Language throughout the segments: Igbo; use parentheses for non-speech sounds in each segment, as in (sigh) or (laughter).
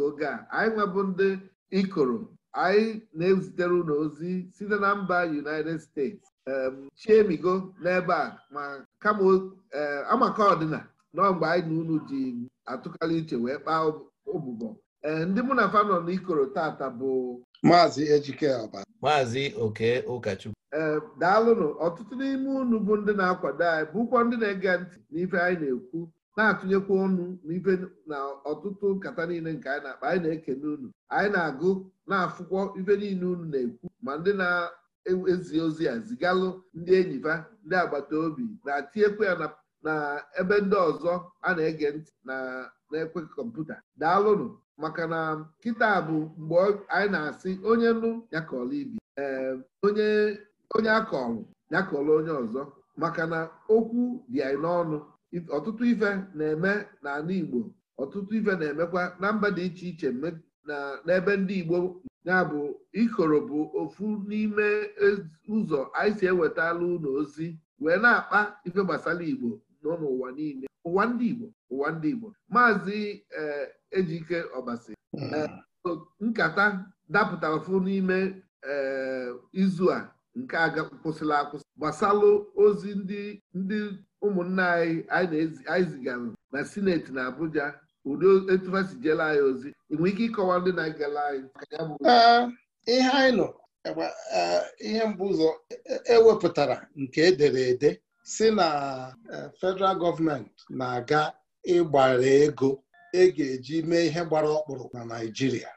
nke oge a anyị nwebụ ndị ikoro anyị na-ezitere unu ozi site na mba United States chiemigo n'ebe a ma kama e, amaka ọdịna nọ mgbe anyị na unu ji atụkarị iche wee kpaa ụbụbọ e, ndị mụ na fa nọ n'ikoro tata bụ maazị Ejike maazị Oke Ụkachukwu e, daalụnụ ọtụtụ n'ime unu bụ ndị na-akwado anyị bụkwa ndị na-ege ntị n'ife anyị na-ekwu na-atụnyekwa ọnụ n'ibe na ọtụtụ nkata niile nke anyị na-akpa anyị na-ekene unu anyị na-agụ na-afụkwọ ibe niile unu na-ekwu ma ndị na-ezi ozi a zigalụ ndị enyi ba ndị agbata obi na-atinyekwa ya na ebe ndị ọzọ a na-ege ntị na na-ekwe kọmputa daalụnụ maka na kịta bụ mgbe anyị na-asị onye nụ ya ibi ee ehm, onye akọrọ ya kọrọ onye ọzọ maka na okwu dị anyị n'ọnụ ọtụtụ ife na-eme n'ala Igbo ọtụtụ ife na-emekwa na mba dị iche iche n'ebe ndị Igbo ya bụ ikoro bụ ofu n'ime ụzọ anyị si ewetala ụlọ ozi wee na-akpa ife gbasara Igbo nọ n'ụwa niile ụwa ndị Igbo ụwa ndị Igbo maazị eh, Ejike Ọbasi hmm. eh, nkata dapụtara fụ n'ime eh, izu a nke aga kwụsịla akwụsị gbasalụ ozi ndị ndị ụmụnna anyị anyị zigara na sineti na Abuja ụdị etufasi jela anyị ozi enweghị ike ịkọwa ndị na agala anyị ihe anyị nọ ihe mbụ ụzọ ewepụtara e nke edere ede si na e, federal gọọmenti na-aga ịgbara ego e ga-eji mee ihe gbara ọkpụrụ na Naịjirịa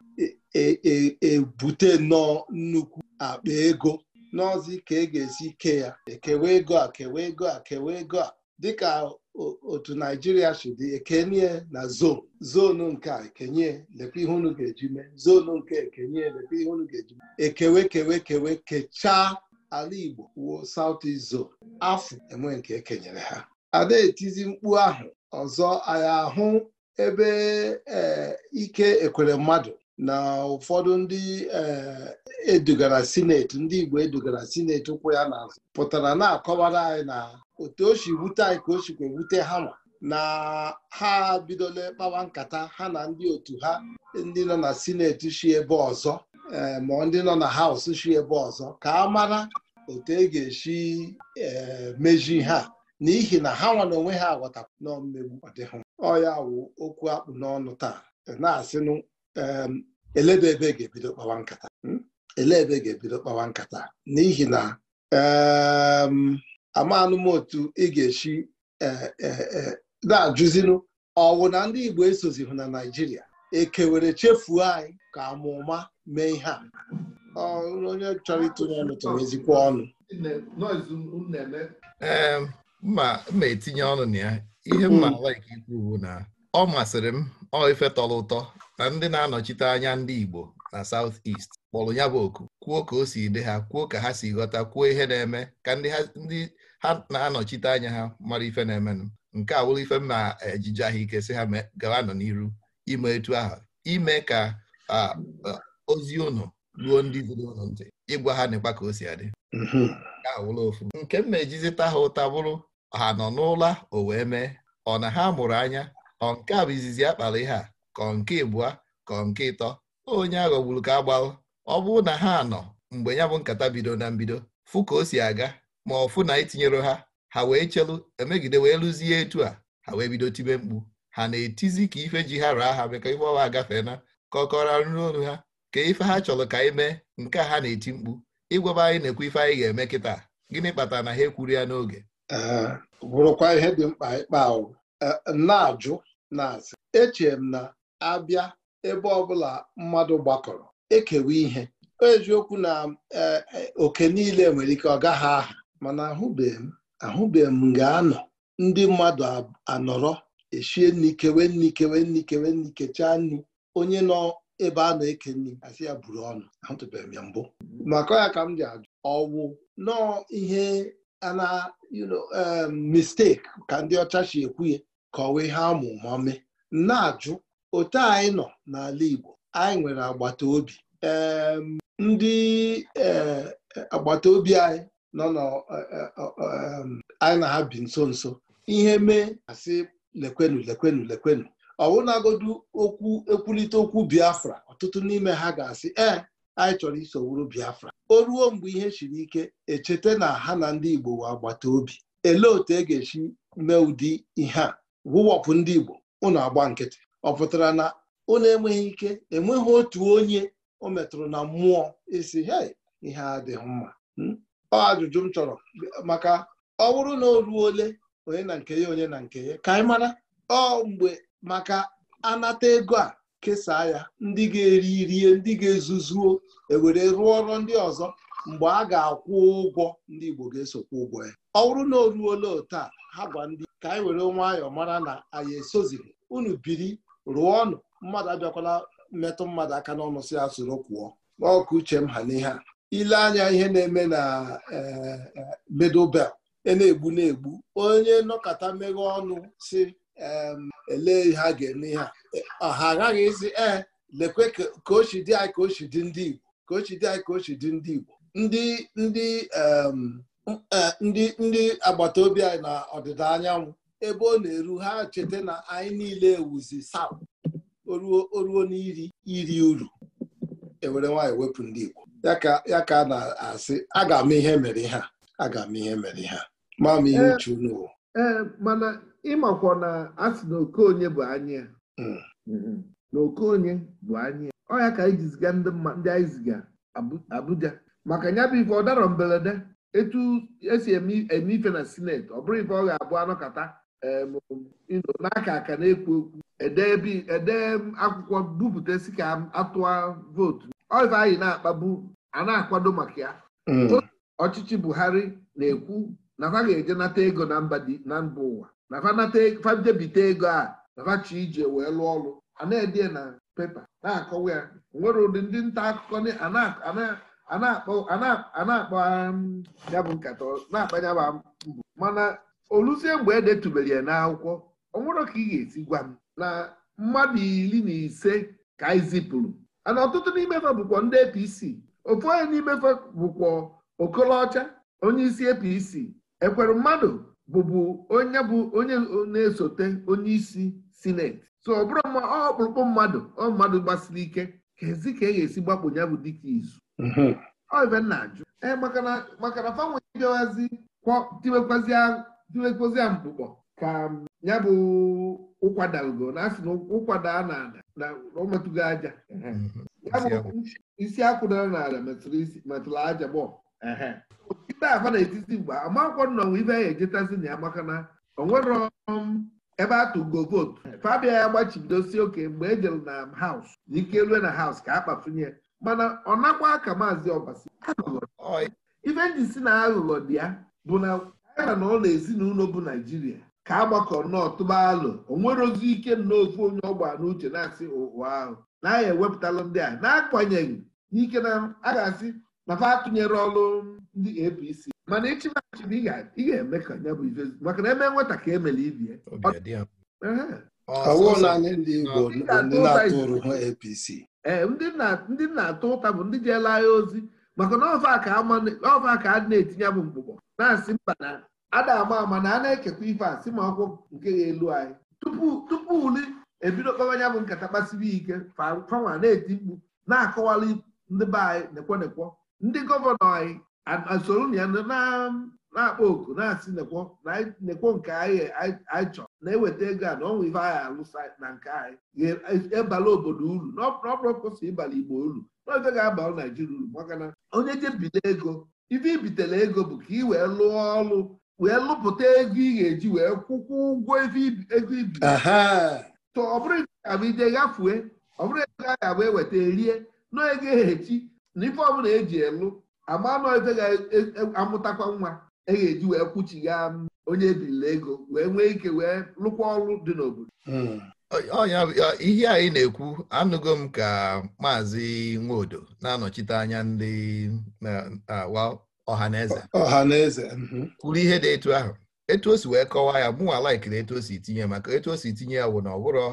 ebute e, nnọọ nnukwu akpa ego n'ọzi ka e ga-esi kee ya ekewe ego a kewe ego a kewe ego a dịka otu naijiria si dị ekenye na zon zonu nke a ekenye lekwa ihe unu ga-eji mee zonu nke ekenye lekwa ihe unu ga-eji mee ekewe kewe kewe kechaa ala igbo wuo south east afọ enwe nke ekenyere ha adaetizi mkpu ahụ ọzọ anyị ahụ ebe eh, ike ekwere mmadụ na ụfọdụ ndị eh, edugara sineti ndị Igbo edugara sineti ụkwụ ya n'azụ pụtara na-akọwara anyị na otu o si wute anyị ka o sikwa ewute ha nwa na ha bidola kpawa nkata ha na ndị otu ha ndị nọ na sineti si ebe ọzọ eh, ma ndị nọ na haus si ebe ọzọ ka a mara otu e ga-esi eh, meji ha n'ihi na ha nwa na onwe ha aghọtakwa na ọdịhụ ọ ya wụ okwu akpụ n'ọnụ taa na-asịnụ eleba ebe ga-ebido kpawa nkata hmm? ele ebe ga-ebido kpawa nkata n'ihi na amanụ m otu ị ga-esi e, e, e, na-ajụzinụ ọwụ na ndị Igbo esozihụ na Naịjirịa ekewere chefuo anyị ka amụma mee ihe a onye chọrọ ịtụnye ọnụ tụrụ ezikwa ọnụ ee mma etinye ọnụ na ya ihe mma ala ikwu na ọ masịrị m ọ ife tọrọ ụtọ na ndị na-anọchite anya ndị Igbo na South East kpọrọ ya bụ oku kwuo ka o si dị ha kwuo ka ha si ghọta kwuo ihe na-eme ka ndị ha na-anọchite anya ha mara ife na-emenụ nke a ife m na-ejije ahụike ike si ha gawa nọ n'iru ime etu ahụ ime ka ozi ụnụ ruo ndị ziri ụnụ ntị ịgwa ha na ka o si adị mhm. nke a ofu nke m na-ejizita ha ụta bụrụ ha nọ n'ụla o wee mee ọ na ha mụrụ anya ọ nke a bụ izizi ya ihe a kọ nke ịbụa kọ nke ịtọ onye aghọgburu ka agbalụ ọ bụrụ na ha nọ mgbe ya bụ nkata bido na mbido fụ ka o si aga ma ọ fụ na itinyere ha ha wee chelu emegide wee lụzie etu a ha wee bido tibe mkpu ha na-etizi ka ife ji ha raa ha meka ife ọwa agafee na ka ọkọra nri olu ha ka ife ha chọrọ ka anyị mee nke a ha na-eti mkpu ịgwaba anyị na-ekwu ife anyị ga-eme kịta gịnị kpatara na ha ekwuru ya n'oge bụrụkwa ihe dị mkpa ịkpa na-ajụ na-asị echere m na abịa ebe ọbụla mmadụ gbakọrọ ekewa ihe eziokwu na e, e, oke niile nwere ike ọ gaghị aha mana ahụbeghị m ga-anọ ndị mmadụ anọrọ eshie nri kewe nri kewe nri kewe nri kechaa nri onye nọ ebe a na-eke nri asị ya buru ọnụ ahụtụbeghị m ya mbụ maka ya ka m ji ajụ ọwụ nọọ ihe ana um, mistake ka ndị ọcha si ekwu ya kọwa ihe amụ mame na-ajụ otu anyị nọ n'ala Igbo anyị nwere agbata obi ndị e, agbata obi anyị nọ e, e, anyị na ha bi nso nso ihe mee asị lekwenu lekwenu lekwenu ọwụnagodu okwu ekwulite okwu Biafra ọtụtụ n'ime ha ga-asị ee anyị chọrọ iso wuru Biafra o ruo mgbe ihe siri ike echeta na ha na ndị Igbo wee agbata obi elee otu e ga-esi mee ụdị ihe a wụwọpụ ndị Igbo unu agba nkịtị ọ pụtara na unu enweghị ike enweghị otu onye o metụrụ na mmụọ isi hei ihe adịghị mma hmm? ọ ajụjụ m chọrọ maka ọ bụrụ na o ruo ole onye na nke ya onye na nke ya ka anyị mara ọ mgbe maka anata ego a kesaa ya ndị ga-eri rie ndị ga-ezuzuo ewere rụọ ọrụ ndị ọzọ mgbe a ga-akwụ ụgwọ ndị Igbo ga-esokwa ụgwọ ya ọ bụrụ na o ruola taa ha gwa ndị ka anyị were nwayọọ mara na anyị esozighị unu biri rụọ ọnụ mmadụ abịakwala mmetụ mmadụ aka n'ọnụ si ya soro kwụọ ọkụ uche m ha n'ihe a ile anya ihe na-eme na e, e, middle belt e na-egbu na-egbu onye nọkọta meghe ọnụ si ele ihe a ga-eme ihe a ha aghaghị ịzi ee lekwe ka dị anyị ka dị ndị Igbo ka dị anyị ka dị ndị Igbo ndị ndị Eh, ndị ndị agbata obi anyị na ọdịda anyanwụ ebe ọ na-eru ha cheta na anyị niile ewuzi saụ oruo n'iri iri uru ewere nwaanyị wepụ ndị Igbo ya ka a na-asị aga m ihe mere ha aga m ihe mere ha Maa m ihe uche unu ee eh, eh, mana ịmakwa na asị na okonye bụ anyị hmm. mm-hmm. na okonye bụ anyị ọ ya ka anyị ji ziga ndị anyị ziga Abuja maka nya bụ ife ọ dara mberede etu esi eme ife na senate ọ bụrụ ife ọ ga-abụ anọkọta n'aka aka na-ekwu okwu ede akwụkwọ bupụta si ka atụa vootu ife anyị na-akpagbu a na-akwado maka ya mm. ọchịchị Buhari na-ekwu na ga-eje nata ego na mba ụwa na fa e, ego a na fachi ije wee lụọ ọrụ a na-ede na pepa na-akọwa ya nwere ụdị ndị nta akụkọ a na-akpagha um, ya bụ nkata na-akpanya m mbụ mana oluzie oh, mgbe edetubere ya n'akwụkwọ ọ nwụrụ ka ị ga-esi gwa m na mmadụ iri na ise ka anyị zipụrụ ana ọtụtụ n'imefe bụkwa ndị APC ofu onye n'imefe bụkwa okolocha onye isi APC e ekwere mmadụ bụbu onye bụ onye na-esote onye isi sineti so ọ bụrụ ọ ọkpụrụkpụ mmadụ ọ mmadụ gbasiri ike ka ezi ka e ga-esi gbapụ ya bụ dịka izu ibe mhm. nna jụ ee makana na fanwe bịawazi tiwekpozi ya mkpụkpọ ka um, ya bụ ụkwadago na asị na ụkwada a na ada na ọmetụgo aja mhm. isi akwụdara n'ala metụrụ aja gbọọ nkịta afa na-etiti mgbe amakwụkwọ nnọnwa ibe ya ejetazi na ya maka na onwero um, ebe atụgo vootu fabia ya gbachibidosi oke mgbe ejere na haus na ike lue na haus ka a kpafunye mana ọ nakwa ka maazị ọbasi ife ndị si na aghụghọ dị ya bụ na ya na ụlọ ezinụlọ bụ naijiria ka agbakọ nnọọ tụba alụ o nwere ozi ike n'ofe onye ọgba n'uche na-asị ụwa ahụ na aya ewepụtalụ ndị a na-akwanyeghị n'ike na a ga-asị papa atụnyere ọrụ ndị APC mana ịchịmachi ị ga-eme ka ya bụ ife maka na eme nweta ka emere ibie ọwụ na anyị ndị Igbo ndị na-atụrụ APC ee eh, ndị na-atụ ụta bụ ndị jeela agha ozi maka na ọfa ka a na-etinye bụ mkpụkpọ na-asị mba na ada ama ama na a na-ekekwa ife a si ma ọkwụ nke elu anyị tupu uli ebido kpawa anya bụ nkata kpasiri ike fanwa na-eti mkpu na-akọwali ndị be anyị nekwonekwo ndị gọvanọ anyị asoro ya na na-akpọ oku na-asị nekwo nke anyị chọ na-eweta ego a na ọnwa ife anyị alụsa na nke anyị ebala e, obodo uru n'ọpụrụpụsị ịbala igbo uru n'ofe ga-abalụ naijiria uru maka na onye jebile ego ife ibitele ego bụ ka ị wee lụọ ọrụ wee lụpụta ego ị ga-eji wee kwụkwọ ụgwọ ego ibi tọ ọ bụrụ gafue ọ bụrụ ego a ga-abụ eweta rie nọ ego ehechi na ife ọbụla eji elu agba nọ ife ga-amụtakwa e, e, nwa e ga-eji wee kwụchigha onye ebirila ego wee nwee ike wee lụkwa ọrụ dị n'obodo hmm. ihe anyị na-ekwu anụgo m ka maazị Nwodo na-anọchite anya ndị ọhaneze ọhaneze mhm. kwuru ihe dị etu ahụ etu o si wee kọwaa ya mụnwa laikiri etu o si tinye maka etu o si tinye ya wụ na ọbụrọ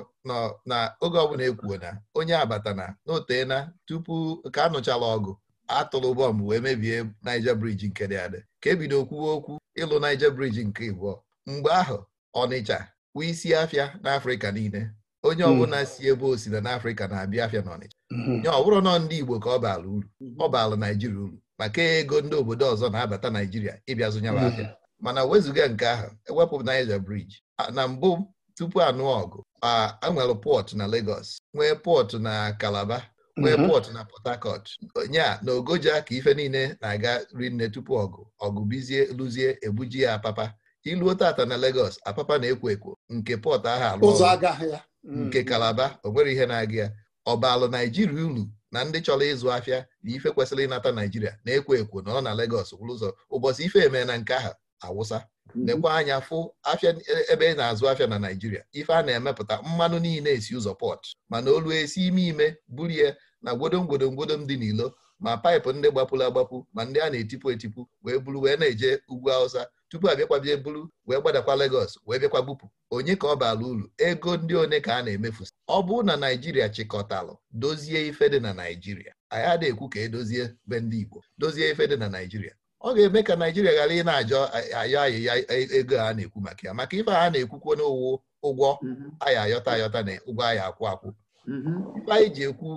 na oge ọbụla ekwuo na onye abatana na otena tupu ka anụchala ọgụ atụlụ bọmbụ wee mebie Naija briji nke dị adị ka ebido kwuwe okwu ịlụ Naija briji nke ịbụọ mgbe ahụ Ọnịcha kwu isi afịa n'Afrịka niile onye hmm. ọbụla si ebe o si na n'Afrịka na-abịa afịa n'Ọnịcha. Ọnịcha hmm. ya ọ bụrụ nọ ndị Igbo ka ọ baala uru hmm. ọ baala Naijiria uru maka ego ndị obodo ọzọ na-abata Naijiria ịbịa zụnyere afịa mana wezụga nke ahụ ewepụ Naija briji na mbụ tupu anụ ọgụ a nwere pọt na Legos nwee pọtụ na Calabar nwee mm-hmm. pọt na Port onye nya na Ogoja ka ife niile na-aga rinne tupu ọgụ ọgụ bizie luzie ebuji ya apapa iluo tata na Lagos apapa na-ekwo ekwo nke pọt ahụ alụ mm. nke Kalaba onwere ihe na-aga ya ọbalụ Naijiria uru na ndị chọrọ ịzụ afịa na ife kwesịrị ịnata Naijiria na-ekwo ekwo na ọ na legos kwụrụ ụzọ ụbọchị ife eme na nke ahụ awụsa mm-hmm. lekwa anya fụ afịa e, ebe ị na-azụ afịa na Naijiria ife a na-emepụta mmanụ niile esi ụzọ pọt mana olu esi ime ime bulie na gwodom gwodom gwodom dị n'ilo ma paịpụ ndị gbapụrụ agbapụ ma ndị a na-etipụ etipụ wee buru wee na-eje ugwu awụsa tupu abịakwabie buru wee gbadakwa Lagos wee bịakwa bupụ onye ka ọ bara uru ego ndị one ka a na-emefusi ọ bụrụ na Naijiria chịkọtalụ dozie ife dị na Naijiria anyị adịghị ekwu ka edozie be ndị Igbo dozie ife dị na Naijiria ọ ga-eme ka Naijiria ghara ị na-ajọ ayọ ayịya ego a na-ekwu maka ya maka ife a na-ekwukwo n'ụwụ ụgwọ mhm. ayị ayọta ayọta na ụgwọ anyị akwụ akwụ mkpa mm-hmm. anyị ji ekwu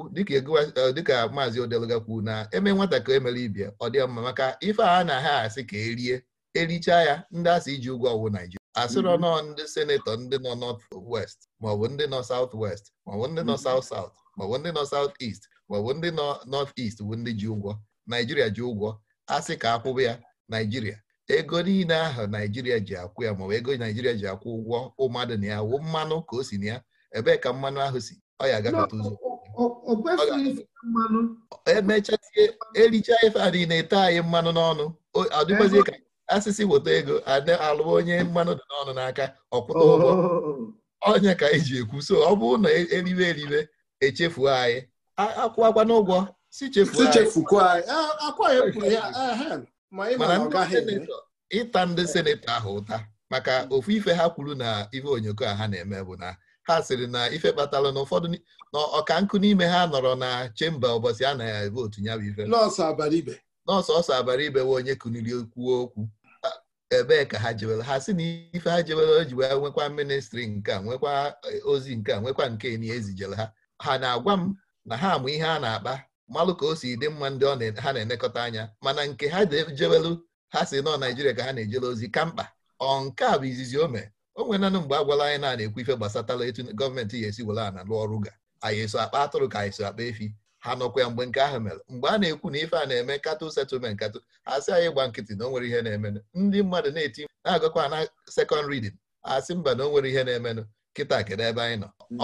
dịka eh, maazị odeluga kwuo na eme nwata ka emere ibia ọ dị mma maka ife a na ha asị ka erie erichaa ya ndị asị iji ụgwọ ọgwụ naijiria asịrọ mm-hmm. nọ ndị senetọ ndị nọ north west maọbụ ndị nọ south west maọbụ ndị nọ mm-hmm. south south maọbụ ndị nọ south est maọbụ ndị nọ north est bụ ndị ji ụgwọ naijiria ji ụgwọ asị ka akwụba ya naijiria ego niile ahụ naijiria ji akwụ ya maọbụ ego naijiria ji akwụ ụgwọ ụmadụ na ya wụ mmanụ ka o si na ya ebee ka mmanụ ahụ si ọ ya agafeta ụzọ emechazie ericha ife a niile ete anyị mmanụ n'ọnụ adịgbazie ka asịsị weta ego ada alụ onye mmanụ dị n'ọnụ n'aka ọkwụta ụgwọ oh. ọnya ka anyị e ji ekwu so ọ bụrụ na e, eriwe eribe echefuo anyị akwụwakwa n'ụgwọ si chefuo anyị mana ịta ndị senetọ ahụ ụta maka ofu ife ha kwuru na ife onyoko a ha na-eme bụ na ha sịrị na ife kpatara na ụfọdụ na ọka nkụ n'ime ha nọrọ na chemba ụbọchị a na votu ya bụ ife nọọsụ ọsọ abara ibe we onye kuniri kwuo okwu ebee ka ha jewere ha si na ife ha jewere o ji wee nwekwa ministri nke a nwekwa eh, ozi nke a nwekwa nke na ezijere ha ha na-agwa m na ha amụ ihe a na-akpa malụ ka o si dị mma ndị ha na-enekọta anya mana nke ha jewelu ha si nọ Naijiria ka ha na-ejele ozi ka mkpa ọ nke a bụ izizi o o nwere mgbe a gwala anyị na-ekwu ife gbasatala etu gọọmenti ya esi were ana lụọ ọrụ ga anyị eso akpa atụrụ ka anyị so akpa efi ha nọkwa ya mgbe nke ahụ mere mgbe a na-ekwu na ife a na-eme katụ setụlment a asị anyị gba nkịtị na o nwere ihe na-emenụ ndị mmadụ na-eti na-agakwa na sekọnd ridin asị mba na o nwere ihe na-emenụ kịta kedu ebe anyị nọ mm.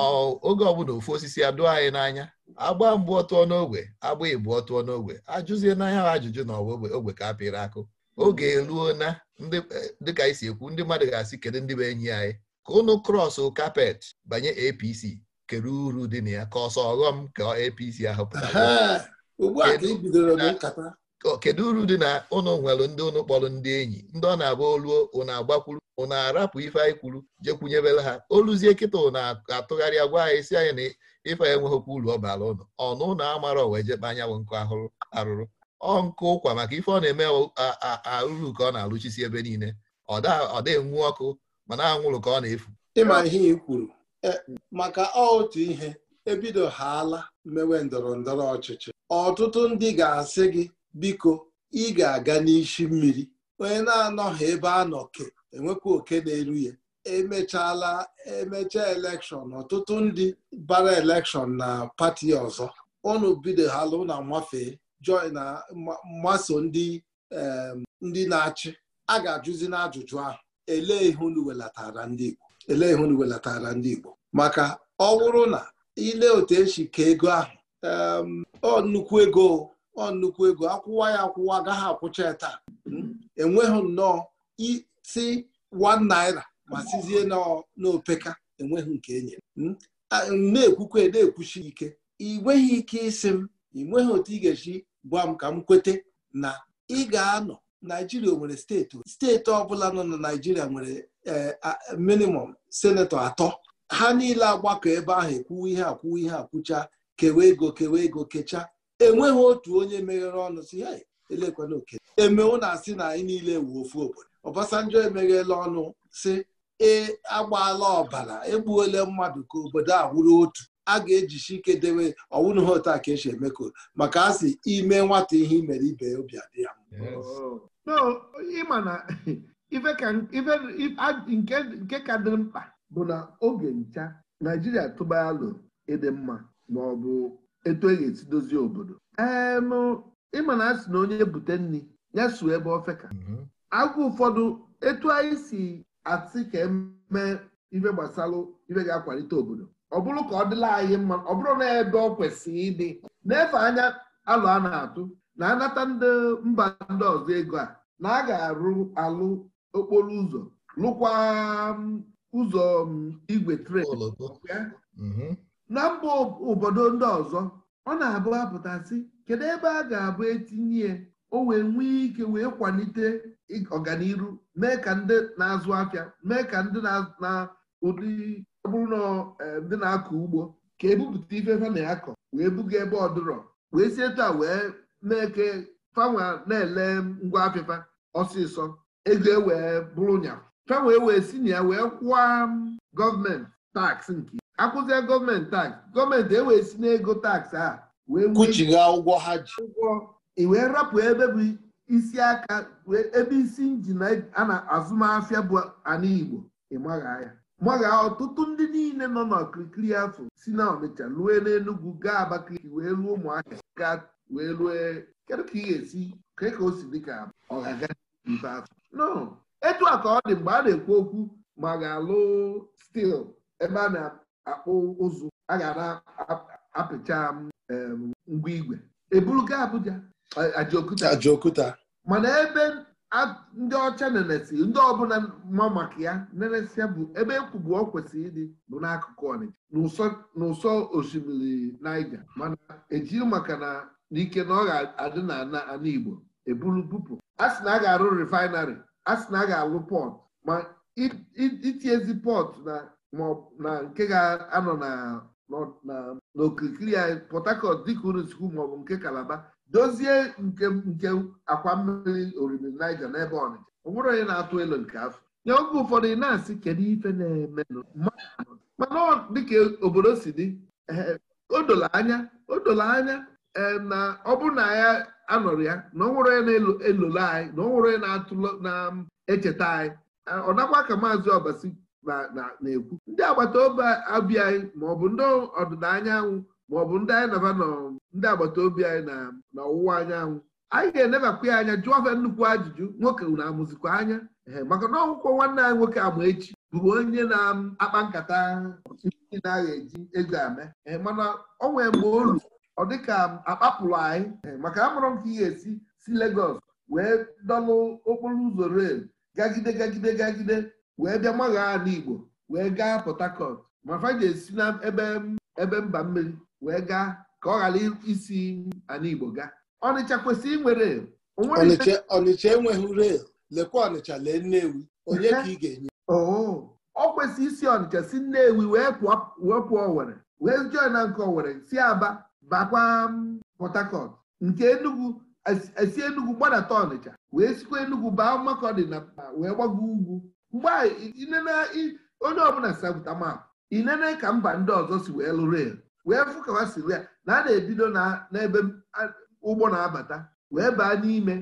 oge ọbụla ofu osisi adụọ anyị n'anya agba mgbe ọtụọ n'ogwe agba ịbụ ọtụọ n'ogwe ajụzie n'anya ajụjụ na ọwa ogbe ka apịrị akụ oge eruo na dịka eh, anyị si ekwu ndị mmadụ ga-asị kedu ndị bụ enyi anyị ka ụnụ krọsụ kapet banye APC kere uru dị na ya ka ọsọ ọghọm ka APC ahụ pụtara e kedu uru dị na ụnụ nwere ndị ụnụ kpọrọ ndị enyi ndị ọ na-agba oluo ụnụ agbakwuru ụnụ arapụ ife anyị kwuru jekwunyebere ha oluzie kịta ụnụ atụgharịa gwa anyị si anyị na ife enweghịkwa uru ọ bara ụnụ ọnụ ụnụ amara owejekpa anyanwụ nkụ ahụrụ arụrụ ọ ụkwa maka ife ọ na-eme arụrụ ka ọ na-alụchisi ebe niile ọ dịnwu enwu ọkụ mana anwụrụ ka ọ na-efu ịma ihe ị kwuru e, maka otu ihe ebido haala mmewe ndọrọ ndọrọ ọchịchị ọtụtụ ndị ga-asị gị biko ị ga-aga n'isi mmiri onye na-anọghị ebe a nọ enwekwa e oke na-eru ya emechaala emecha elekshọn ọtụtụ ndị bara elekshọn na pati ọzọ unu bido hala na nwafee joy na mgbaso ndị ndị na-achị a ga-ajụzi n'ajụjụ ahụ elee ihe unu welatara ndị Igbo elee ihe unu welatara ndị Igbo maka ọ bụrụ na ile otu esi ka ego ahụ ọ nnukwu ego ọ nnukwu ego akwụwa ya akwụwa agaghị akwụcha ya taa hmm? enweghị nnọọ isi 1 naira ma sizie n'opeka enweghị nke enye hmm? na-ekwukwa na-ekwuchi ike ị nweghị ike ịsị m ị nweghị otu ị ga-esi gwa m ka m kwete na ị ga-anọ naijiria nwere steeti steeti ọbụla nọ na naijiria nwere eh, minimum senetọ atọ ha niile agbakọ ebe ahụ ekwuwe ihe akwuwe ihe akwụcha kewe ego kewe ego kechaa. enweghị otu onye meghere ọnụ si ya elekwana oke emewo na asị na anyị niile wu ofu obodo Obasanjo emeghela ọnụ si e agbaala ọbara egbuola mmadụ ka obodo a wụrụ otu a ga-ejisi ike dewe ọwụna ha a ka esi emeko maka a sị ime nwata ihe imere ibe ya obi adị ya nke ka dị mkpa bụ na oge ncha naijiria tụba alụ ịdị mma ma ọ bụ etu e ga-esi dozie obodo ịma na a sị na onye bute nri ya suo ebe ofeka. ka mm-hmm. ụfọdụ etu anyị si atị ka emee ife gbasara ife ga-akwalite obodo ọ bụrụ ka ọ dịla anyị mma ọ bụrụ na ebe ọ kwesịrị ịdị na-efe anya alụ a na-atụ na anata ndị mba ndị ọzọ ego a na a ga-arụ alụ okporo ụzọ lụkwa um, ụzọ um, igwe tren mm-hmm. na mba obodo ndị ọzọ ọ na-abụ apụtasị kedu ebe a ga-abụ etinye o wee nwee ike wee kwalite ọganiru mee ka ndị na-azụ afịa mee ka ndị na ụdị ọ bụrụ na eh, ndị na-akọ ugbo ka ebupụta ife fa na-akọ wee buga ebe ọdụrọ wee sie taa wee na-eke na-ele ngwa afịfa ọsịsọ ego ewee bụrụ nya fanwa e wee si na ya wee kwụọ mm, gọọmenti taksị nke akwụzie gọọmenti taksị gọọmenti ewee si n'ego taksị a wee kwụchiga ụgwọ ha ji ụgwọ wee rapụ ebe bụ isi aka ebe isi injin a na azụmahịa bụ ala Igbo ịmagha ya gbaga ọtụtụ ndị niile nọ n'okirikiri afọ si na Ọnịcha lue n'Enugwu gaa Abakaliki wee ruo Ụmụahịa wee rue kedu ka ị ga-esi kee ka o si dị ka afọ. no etu a ka ọ dị mgbe a na-ekwu okwu ma ga-alụ stil ebe a na-akpụ ụzụ a ga na-apịcha ngwa igwe eburu gaa Abuja Ajaokuta mana ebe ndị ọcha nenesi ndị ọbụla ma maka ya ya bụ ebe ekwubu ọ kwesịrị ịdị bụ n'akụkụ ọnịcha n'ụsọ osimiri Naija mana ejiri maka na n'ike na ọ ga-adị na Igbo eburu bupụ a sị na a ga-arụ refinarị a sị na a ga-alụ pọt ma itiezi pọt na nke ga-anọ n'okirikiri anyị Port dị dịka unu sikwu maọbụ nke Kalaba dozie nke nke akwa mmiri oriri Niger n'ebe Ọnịcha ọ onye na-atụ elu nke afọ nye oge ụfọdụ ị na-asị kedu ife na-eme mana dịka obodo si dị eh, o dola anya o anya eh, na ọ bụ na ya anọrọ ya na ọ onye na-elolo anyị na ọ nwere onye na-atụlọ na-echeta anyị eh, ọ nakwa ka maazị Obasi na-ekwu ndị agbata obi abịa anyị ma ọ bụ ndị ọdịda bụ ndị anyị naba nọ ndị agbata obi anyị na ọwụwa anyanwụ anyị ga-enebakwa ya anya jụọ ofe nnukwu ajụjụ nwoke na amụzikwa anya ee maka na ọgwụkwọ nwanne anyị nwoke ama echi bụrụ onye na-akpa nkata na-agha eji ego ame mana ọ nwere mgbe olu ọ dịka akpapụrụ anyị maka amụrụ m ka ị ga-esi si Legos wee dọlụ okporo ụzọ rel gagide gagide gagide wee bịa magha ala Igbo wee gaa Port Harcourt ma fa ga-esi n'ebe ebe mba mmiri wee gaa ka ọ ghara isi ana Igbo gaa Ọnịcha kwesịrị inwere Ọnịcha enweghị rel lekwa Ọnịcha lee Nnewi onye ka ị ga-enye ọ oh, kwesịrị isi Ọnịcha si Nnewi wee pụọ Owere wee jọọ na nke Owere si Aba bakwa mm, Port Harcourt nke Enugu esi Enugu gbadata Ọnịcha wee sikwa Enugu baa mmakọ dị na wee gbago ugwu mgbe onye ọbụla sapụta ị nene ka mba ndị ọzọ si wee lụrụ elu wee fụ ka siri ya na a na-ebido n'ebe ụgbọ na-abata wee baa n'ime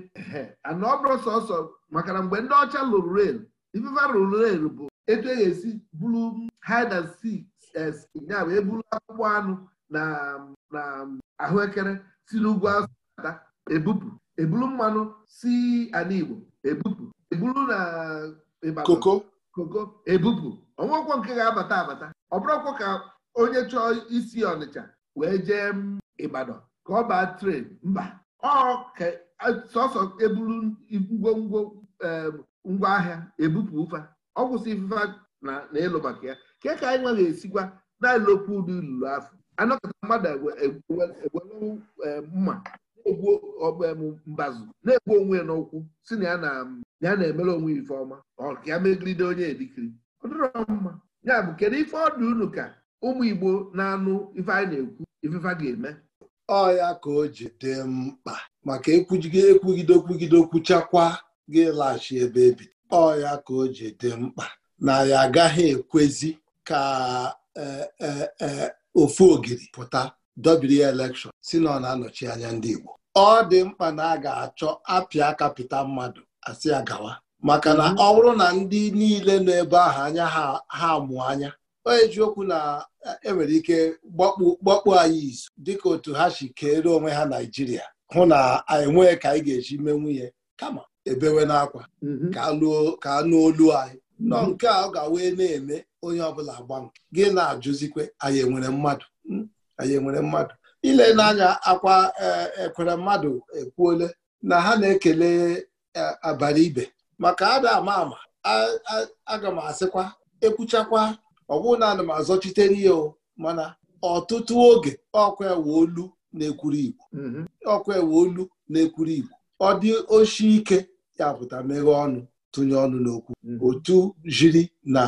ana ọ bụrụ sọsọ maka na mgbe ndị ọcha lụrụ rel ifefe rụrụ rel bụ etu e ga-esi bulu hide and eh, ya wee buru akpụkpọ anụ na ahụekere si n'ugwu asụ bata ebupụ ebulu mmanụ si ala Igbo ebupụ ebulu na eh, koko koko ebupụ ọnwụọkwọ nke ga-abata abata ọ bụrụkwa ka onye chọọ isi Ọnịcha wee jee Ịbadọn ka ọ baa tren mba ọ sọsọ eburu ngwongwo ngwa ahịa ebupụ ụfa ọ kwụsị ifufe na ịlụ maka ya ke ka anyị nweghị esikwa na-elokwu ụdị afọ anọkọta mmadụ ewelu mma na-egbu mbazụ na-egbu onwe n'ụkwụ si na ya na-emere onwe ife ọma ọ ka ya megide onye edikiri ọ dịrọ mma ya bụ kedu ife ọdụ unu ka ụmụ Igbo na-anụ ife anyị na-ekwu ifefa ga-eme ọ ya ka o ji dị mkpa maka ekwugide ekwugide okwugide okwuchakwa ga ebe ebido ọ ya ka o ji dị mkpa na ya agaghị ekwezi ka e, e, e, ofu ogiri pụta dobiri elekshọn si na ọ na-anọchi anya ndị Igbo ọ dị mkpa na a ga-achọ apịa kapịta mmadụ asị ya gawa maka na mhm. ọ bụrụ na ndị niile nọ ebe ahụ anya ha mụ anya onye okwu na enwere ike gbakpu anyị izu dịka otu ha si keere onwe ha naijiria hụ na anyị nwee ka anyị ga-eji mee nwunye kama ebewe n'akwa mhm. ka anụ olu anyị nọ nke a ọ ga wee na-eme onye ọbụla gba gị na-ajụzikwe anyị enwere mmadụ hmm, anyị enwere mmadụ ile n'anya akwa ekwere e, mmadụ ekwuole na ha na-ekele e, abalị ibe maka ada ama ama aga m asịkwa ekwuchakwa ọ bụrụ na ana m azọchitere ya mana ọtụtụ oge ọkwa ewe olu na-ekwuru igbo mhm. na-ekwuru igbo ọ dị oshi ike ya pụta meghe ọnụ tụnye ọnụ n'okwu mhm. otu jiri na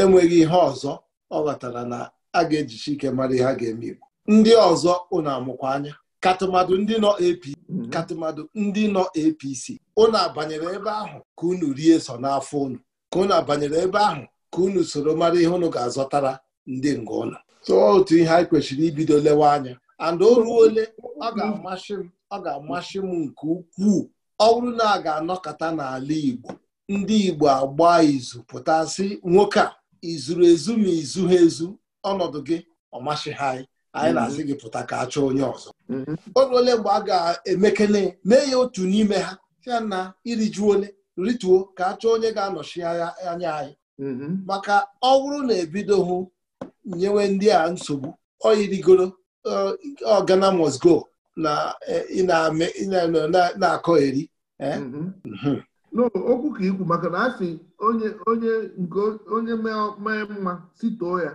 enweghị ihe ọzọ ọ ghọtara na a ga-ejichi ike mara ihe a ga-eme igbo ndị ọzọ ụnụ amụkwa anya katụmadụ ndị nọ APC mhm. katụmadụ ndị nọ APC ụnụ abanyere ebe ahụ ka unu rie so n'afọ unu ka unu abanyere ebe ahụ ka unu soro mara ihe unu ga-azọtara ndị nga ụlọ so otu ihe anyị kwesịrị ibido lewe anya and o ruo ole ọ ga-amasị m ọ ga-amasị m nke ukwuu ọ bụrụ na a ga-anọkọta n'ala Igbo ndị Igbo agba izu pụtasị nwoke a izuru ezu ma izu ha ezu ọnọdụ gị ọ masị ha anyị anyị mm-hmm. na azị gị pụta ka a chọọ onye ọzọ mm-hmm. o ruole mgbe a ga-emekele mee ya otu n'ime ha ya na iriju ole rituo ka a chọọ onye ga-anọchi anya anyị Mm-hmm. maka ọ bụrụ na hụ nyewe ndị a nsogbu ọ yirigoro uh, ọgana mosgo na eh, na-akọgheri eh? mm-hmm. mm-hmm. okwu ka ikwu maka na asị onye onye nke onye mee mma sitoo ya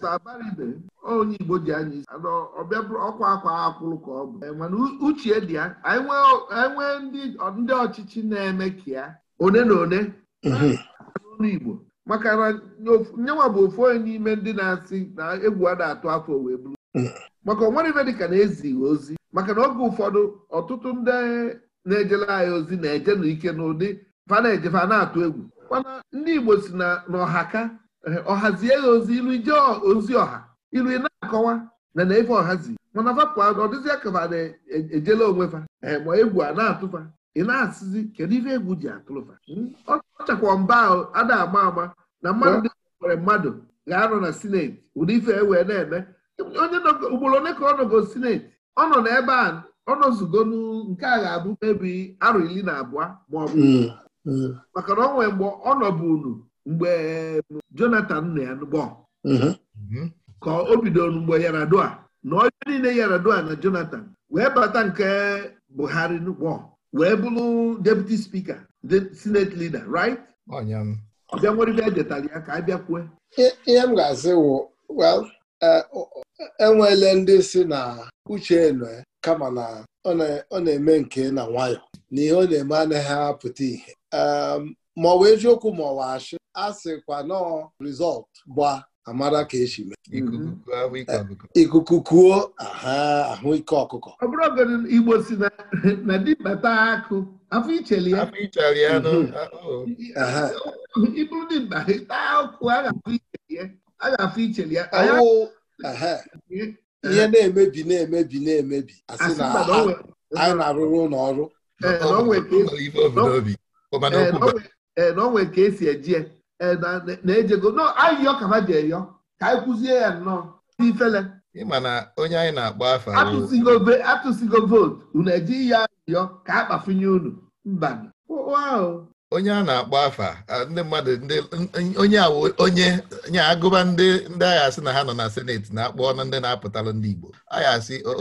sabaribe eh, onye Igbo ji anya isi ọbịa ọkwa akwa akwụrụ ka ọ bụ mana uche dị ya anyị nwee ndị ọchịchị na-eme ka ya one na one n'olu Igbo maka na nyenwa bụ ofu onye n'ime ndị na-asị na egwu a na-atụ afọ wee bụrụ maka onwere ife dịka na-ezighị ozi maka na oge ụfọdụ ọtụtụ ndị na-ejela anyị ozi na-eje n'ike n'ụdị fa na na-atụ egwu mana ndị Igbo si na ọha ka ọhazie ya ozi ilu ije ozi ọha ilu ị na-akọwa na na-efe ọhazi mana fapụ ọ dịzịa ka na-ejela e, onwe fa ma egwu a na-atụfa ị na-asịzi kedu ife egwu ji atụlụfa hmm? ọ chakwa mba ahụ a na-ama ama na mmadụ dị nwere mmadụ ga-anọ na sineti ụdị ife ewee na-eme onye ugboro ole ka ọ nọgo sineti ọ nọ n'ebe a ọ nọzugo nke a ga-abụ mebi arụ iri na abụọ ma ọ bụ hmm. maka na ọ nwee mgbe ọ nọbụ unu mgbe um, Jonathan nọ ya n'ụgbọ hmm. ka o bidoru mgbe Yaradua na onye niile Yaradua na Jonathan wee bata nke Buhari n'ụgbọ wee bụrụ deputy speaker the senate leader right bịa nwere ibe edetara ya ka a bịakwue ihe m ga azị wụ well enwele e ndị si na uche enwe kama na ọ na-eme nke na nwayọ na ihe ọ na-eme anaghị apụta ihe ma ọ bụ eziokwu ma ọ wa asị a sịkwa nọọ rizọlt gba amara ka esi mee ikuku mm-hmm. kuo eh, ahụ ike ọkụkọ ọ bụrụ Igbo si na dibata akụ afọ icheli ya mm-hmm. ịbụrụ dimkpa taa ọkụ a ga-afọ icheli ya ihe na-emebi na-emebi na-emebi asị na anyị na-arụrụ ụlọ ọrụ ee eh, na onwe eh, ka esi eji ya na-ejego nọ anyị yọ ka ha ji eyọ ka anyị kwụzie ya nnọọ ifele ịma na onye anyị na-akpọ afa atụsigo vootu unu eji ya yọ ka a kpafunye unu mba onye a na-akpọ afa ndị mmadụ onye onye nye agụba ndị ndị agha asị na ha nọ na seneti na-akpọ na ndị na-apụtalụ ndị Igbo agha asị ọ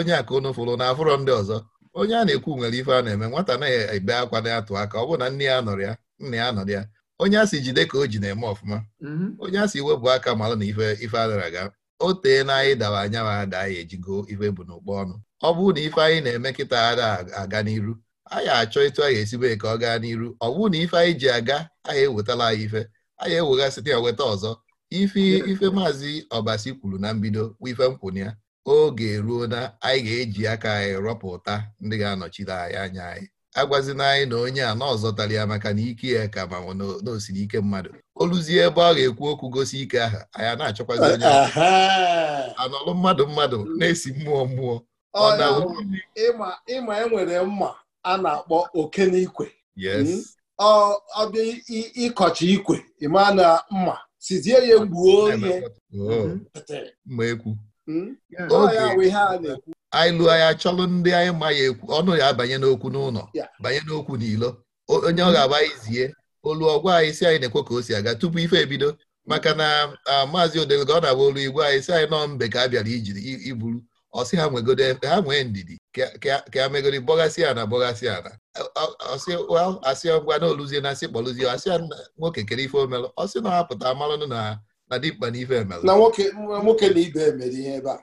onye a ka unu fụrụ na afụrọ ndị ọzọ onye a na-ekwu nwere ife a na-eme nwata na-ebe akwa na-atụ aka ọ bụrụ na nne ya nọrọ ya nna ya nọrọ ya onye asị jide ka o ji na-eme ọfụma mhm. onye asị webụ aka mara na ife ife adara aga o tee na anyị dawa anya ma ada anyị ejigo ife bụ n'ụkpọ ọnụ ọ bụrụ na ife anyị na-eme kịta ada aga n'iru anyị achọ ịtụ anyị esibe ka ọ gaa n'iru ọ bụrụ na ife anyị ji aga anyị ewetala anyị ife anyị site ya weta ọzọ ife ife maazị ọbasi kwuru na mbido bụ ife nkwụnye ya oge ruo na anyị ga-eji aka anyị rọpụta ndị ga-anọchite anyị anya anyị agwazina anyị na onye a na ya maka na ike ya ka ma na osiri ike mmadụ oluzie ebe ọ ga-ekwu okwu gosi ike aha anyị na-achọkwazi onye anọlụ mmadụ mmadụ na-esi mmụọ mmụọ ịma enwere mma a na-akpọ okenikwe hmm? ọbịa ịkọcha ikwe ịma na mma sizie ya mgbuo oge na ekwu hmm? anyị lụọ ya chọrọ ndị anyị ma ya ekwu ọnụ ya abanye n'okwu n'ụlọ banye n'okwu n'ilo onye ọ ga-agba anyị zie olu ọgwa anyị si anyị na-ekwe ka o si aga tupu ife ebido maka na maazị odelgo ọ na-agba olu igwe anyị si anyị nọ mbe ka a bịara ijiri iburu ọsị ha nwegodo ha nwee ndidi ka a megoro bọgasị ana bọgasị ana asị ngwa na oluzie na asị kpọluzie asị nwoke kere ife omelụ ọsị na ọ hapụta amalụnụ na na dimkpa na ife emere na nwoke na ibe emere ihe ebe a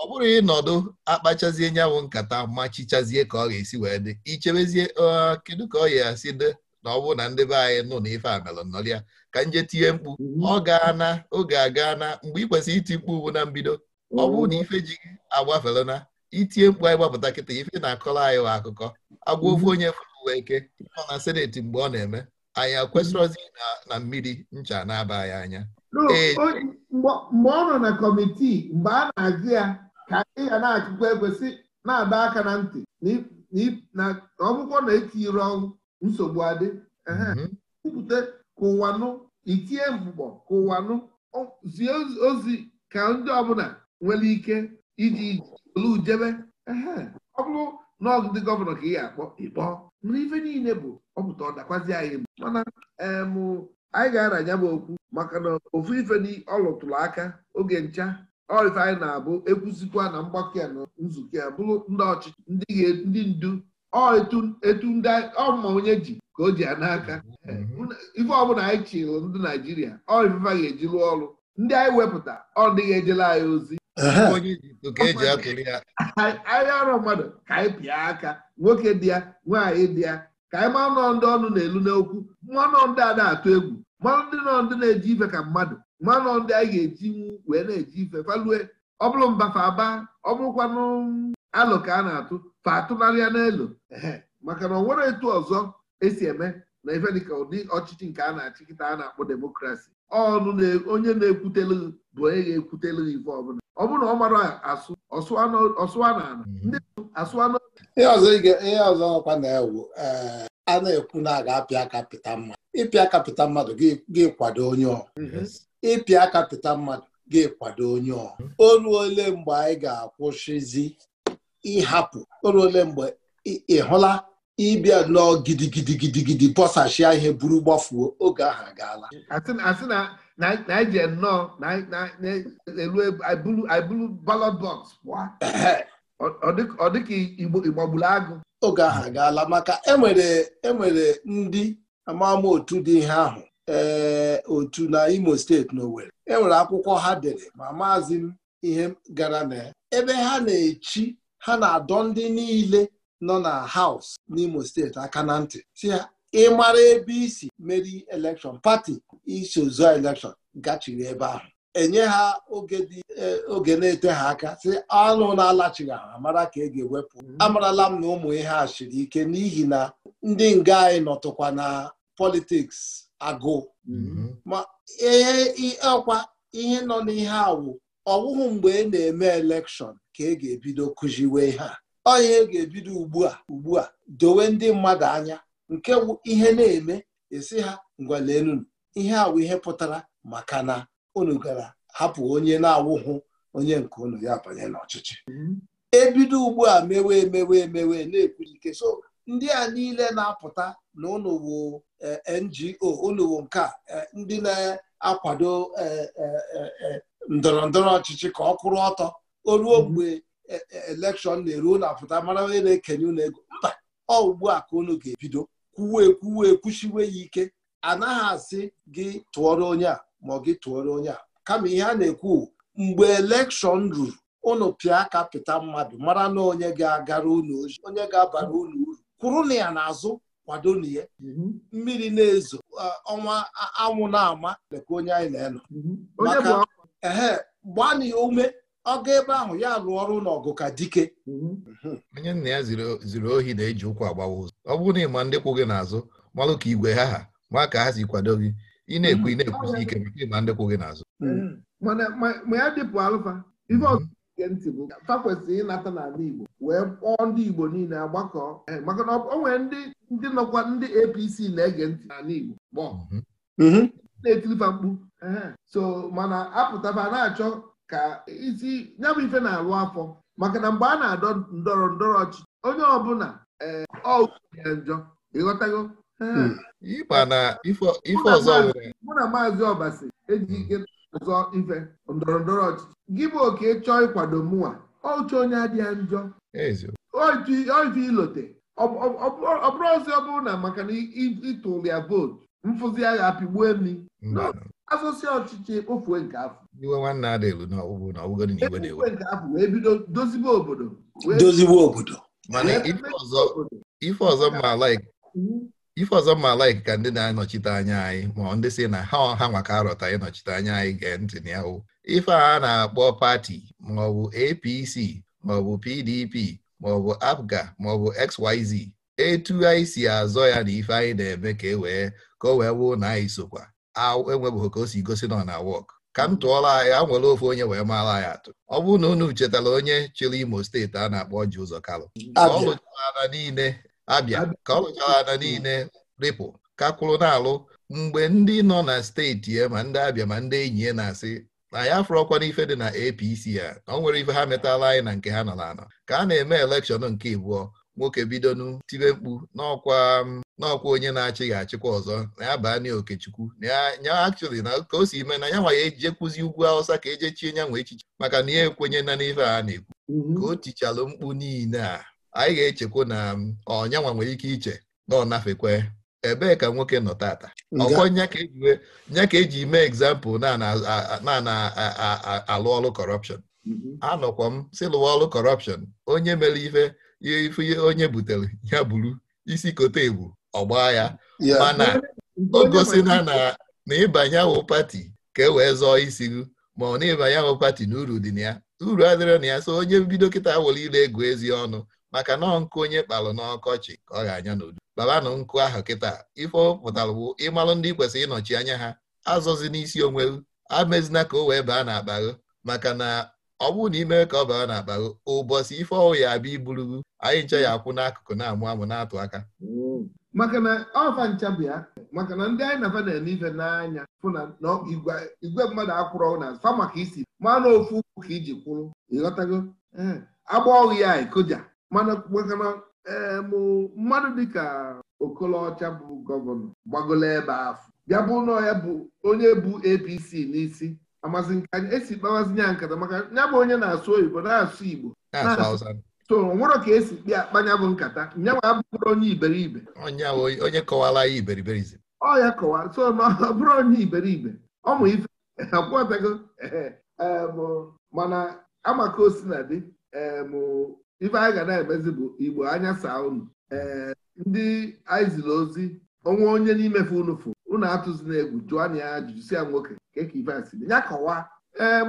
ọ bụrụ ịnọdụ akpachazie nyanwụ nkata machichazie ka ọ ga-esi wee dị ichebezie kedu ka ọ ga-asị dị na ọ bụrụ na ndị be anyị nụ na ife a ka nje tinye mkpu mhm. ọ gaa na oge aga na mgbe ị kwesịrị iti mkpu ugbu na mbido ọ bụrụ na mhm. ife ji agbafere na itinye mkpu anyị gbapụta kịta ife na-akọrọ anyị akụkọ agwa ofu onye fụrụ eke nọ na seneti mgbe ọ na-eme anyị akwesịrọzi na mmiri ncha na-aba ya anya mgbe ọ nọ na kọmitii mgbe a na-agụ ya ka ị ga na-achịkwa ekwesị na adọ aka na ntị na ọgwụgwọ na-etiri ọnwụ nsogbu adị mm-hmm. kwupụta ka ụwanụ nụ itie mkpụkpọ ka ụwanụ zie ozi ka ndị ọbụla nwere ike iji olu jebe ọ bụrụ na ọgụdị gọvanọ ka ị ga-akpọ nri ife niile bụ ọpụta ọdakwazi dakwazi anyị mana anyị ga-aranya m okwu maka na ofu ife ọ lụtụrụ aka oge ncha ọife anyị na-abụ ekwuzikwa na mgbakọ ya na nzukọ ya bụrụ ndị ọchịchị ndị ndu etu ndị ọma onye ji ka o ji ya n'aka mm-hmm. ife ọbụla anyị chịlụ ndị Naijiria ọ ga-eji rụọ ọrụ ndị anyị wepụta ọ dịghị ejela anyị ozi onye Ijipt ka e ya (laughs) anyị arọ mmadụ ka anyị pịa aka nwoke dị ya nwaanyị dị ya ka anyị ma nọ ndị ọnụ na-elu n'okwu mmanụ ndị a na-atụ egwu mmanụ ndị nọ ndị na-eji ife ka mmadụ mmanụ ndị anyị ga-eji wee na-eji ife falue ọ bụrụ mba fa aba ọ bụrụkwanụ alụ ka a na-atụ fa atụnarịa n'elu maka na ọ nwere etu ọzọ esi eme na ife dịka ụdị ọchịchị nke a na achịkịta a na-akpọ demokrasi ọnụ onye na-ekwutelu bụ onye ga-ekwutela ife ọbụla ọ bụrụ na ọ mara asụ ọsụwa na ala mhm. ndị asụ na ihe ọzọ ọkwa na-ewu eh, a na-ekwu na aga apịa aka pịta mmadụ ịpịa aka pịta mmadụ ga-ekwado onye ọ mhm. ịpịa aka pịta mmadụ ga-ekwado onye ọ mhm. olu ole mgbe anyị ga-akwụsịzi ịhapụ olu ole mgbe ị hụla ịbịa nnọọ gidigidigidigidi bọsachia ihe buru gbafuo oge ahụ agaala na anyị ji nnọọ na-ebulu ballot ọ dịka igbo gburu agụ oge ahụ agaala maka enwere ndị amamotu otu dị ihe ahụ ee otu na imo steeti na enwere akwụkwọ ha dere ma maazị m ihe gara na ebe ha na-echi ha na-adọ ndị niile nọ na haus n'imo steeti aka na ntị ịmara ebe isi meri elekshọn pati isi zụọ elekshọn gachiri ebe ahụ enye ha oge e, na-ete ha aka sị anụ na-alachighị ha mara ka e ga-ewepụ mm-hmm. amarala m na ụmụ ihe a siri ike n'ihi na ndị nga anyị nọtụkwa na politiks agụụ mm-hmm. ma e, e, ọkwa ihe nọ n'ihe awụ ọwụhụ mgbe ị na-eme elekshọn ka e ga-ebido kụziwe ihe a ọ ihe ga-ebido ugbu a ugbu a dowe ndị mmadụ anya nke wụ ihe na-eme esi ha ngwalenụ ihe awụ ihe pụtara maka na unu gara hapụ onye na-awụhụ onye nke unu ya banye n'ọchịchị mhm. ebido ugbu a mewe emewe emewe na-ekwujike so ndị a niile na-apụta na unu eh, NGO unu nke eh, ndị na-akwado eh, ndọrọ ndọrọ ọchịchị ka ọ kwụrụ ọtọ o ruo mhm. mgbe elekshọn na-eru na-apụta mara onye na-ekenye ụlọ ego mba ọ ugbu a ka unu ga-ebido kwuwe ekwuwe ekwuchiwe ya ike anaghị asị gị tụọrọ onye a ma ọ gị tụọrọ onye a kama ihe a na-ekwu mgbe elekshọn ruru ụnụ pịa aka mmadụ mara na onye ga-agara unu oji onye ga-abara unu uru kwụrụ na ya n'azụ kwado na ya mhm. mmiri na-ezo ọnwa anwụ na-ama leka onye anyị na-enọ mhm. maka ehe gbaa ume ọga ebe ahụ ya lụọ ọrụ n'ọgụ ka dike mm-hmm. onye nna ya ziri ohi na-eji ụkwụ agbawa ụzọ ọ bụrụ na ịma ndị kwụ gị n'azụ malụ ka igwe ha ha ma ka ha si kwado gị ị na-ekwu ị na ike maka ịma ndị kwụ gị n'azụ mm-hmm. ma ya mm-hmm. ịnata n'ala Igbo wee niile agbakọ eh, na o nwere ndị nọkwa ndị APC na-ege ntị n'ala Igbo na-etirifa mkpu eh, ka isi ya bụ ife na-alụ afọ maka na mgbe a na-adọ ndọrọ ndọrọ ọchịchị onye ọbụla ee eh, ọ njọ ịghọtago hmm. mụ na maazị ọbasi eji ike ọzọ ife ndọrọ ndọrọ ọchịchị gị bụ oke chọọ ịkwado mụnwa ọchị onye adịghị njọ oife ilote ọ bụrụ ọzọ ọ bụrụ na maka na ịtụrụ ya vootu mfụzi agha apịgbuo mi hmm. afọsi ọchịchị kpofuo nke afọ iwe nwanne adịlụ na ọgbụgbụ na ọgbụgodị na iwe na-ewe nke afọ wee bido dozibo obodo dozibo obodo mana ife ọzọ mma laik ife ọzọ mma laik ka ndị na-anọchite anya anyị ma ndị si na ha ha maka arọta ịnọchite anya anyị gee ntị na ya ife a na-akpọ pati maọbụ APC maọbụ PDP maọbụ APGA maọbụ XYZ etu anyị si azọ ya na ife anyị na-eme ka e wee ka o wee wụ na anyị sokwa enwebeghị ka o si gosi nọ na wọk ka m tụọla anyị a e, nwere ofe onye wee maara anyị atụ ọ bụrụ na unu chetara onye chịrị imo steeti a na-akpọ ji ụzọ kalụ ka ọ lụchara ala niile abịa ka ọ lụchara ada niile ripụ ka kwụrụ na-alụ mgbe ndị nọ na steeti ya ma ndị abịa ma ndị enyi ya na-asị na ya afụrọkwa n'ife dị na APC ya na ọ nwere ife ha metala anyị na nke ha nọ na anọ ka a na-eme elekshọn nke ịbụọ nwoke bidonu tibe mkpu n'ọkwa mm, n'ọkwa onye na-achịghị achịkwa ọzọ na ya baa na okechukwu ya akchụli na ka o si ime na ya nwa ya eje kwụzi ugwu awụsa ka eje chie nyanwa echiche maka na ya ekwenye na n'ife a na-ekwu mhm. ka o tichalụ mkpu niile a anyị ga-echekwa na mm, ọnyanwa nwere ike iche na ọ nafekwe ebee ka nwoke nọ tata ọkọ nya ka eji e mee egzampụl na na-alụ ọrụ kọrọpshọn mhm. anọkwa m si lụwa ọrụ kọrọpshọn onye mere ife ihe ifunye onye butere ya buru isi kote ebu ọgba ya mana o gosina na ịbanye ahụ pati ka e wee zọọ isi gị ma ọ na-ịbanye ahụ pati na uru dị na ya uru adịrọ na ya so onye bido kịta were ile egwu ezi ọnụ maka nọọ nkụ onye kpalụ n'ọkọchị ka ọ ga-anya n'udu babanụ nkụ ahụ kịta ife pụtara bụ ịmalụ ndị kwesịrị ịnọchi anya ha azọzi n'isi onwe amezina ka o wee baa na akpa maka na ọ bụrụ na ime ka ọ bara n'akpa ụbọchị ife ọwụ ya abịa iburugu anyị nche ya akwụ n'akụkụ na-amụ amụ na-atụ aka mm. maka na ọfa ncha ya maka na ndị anyị na-aba na ife n'anya fụ na igwe mmadụ akwụrụ na fa maka isi mana ofu ka iji kwụrụ ịghọtago eh, agba ọghụ ya ekoja mana maka na eh, mmadụ dịka okolocha bụ gọvanọ gbagolo ebe afọ bịa bụ na ya bụ onye bụ APC n'isi amasị nke anyị esi kpawazinye nkata maka ya bụ onye na-asụ oyibo na-asụ igbo so nwere ka esi kpịa akpanya bụ nkata nyanwa abụrụ onye iberibe onye kọwara ya iberiberize ọ ya kọwa so na ọ bụrụ onye iberibe ọmụ ife akwụọtago mana amaka osi na dị ife anyị ga na-emezi bụ igbo anya saa unu ndị anyị ozi onwe onye n'imefe unu fụ unu na egwu jụọ na ya ajụjụ si ya nwoke keka ivesi ya kọwaa ee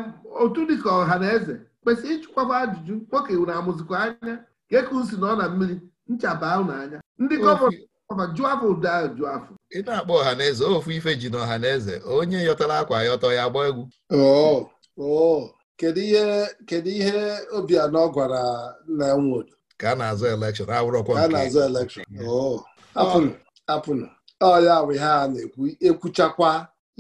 otu dịka ọha na eze kwesịrị ịchụkwaba ajụjụ nwoke na amụzikwa anya keka si na ọ na mmiri nchaba unu anya ndị gọọmenti jụọ afọ ụdọ jụọ afọ ị na-akpọ ọha na eze ofu ife ji na ọha na eze onye yọtara akwa yọtọ ya gbaa egwu oh, oh, kedu ihe kedu ihe Obianọ gwara nna nwodo ka a na-azụ elekshọn awụrọkwa nke a na-azụ elekshọn oh, apụnụ apụnụ ọya ha na-ekwu ekwuchakwa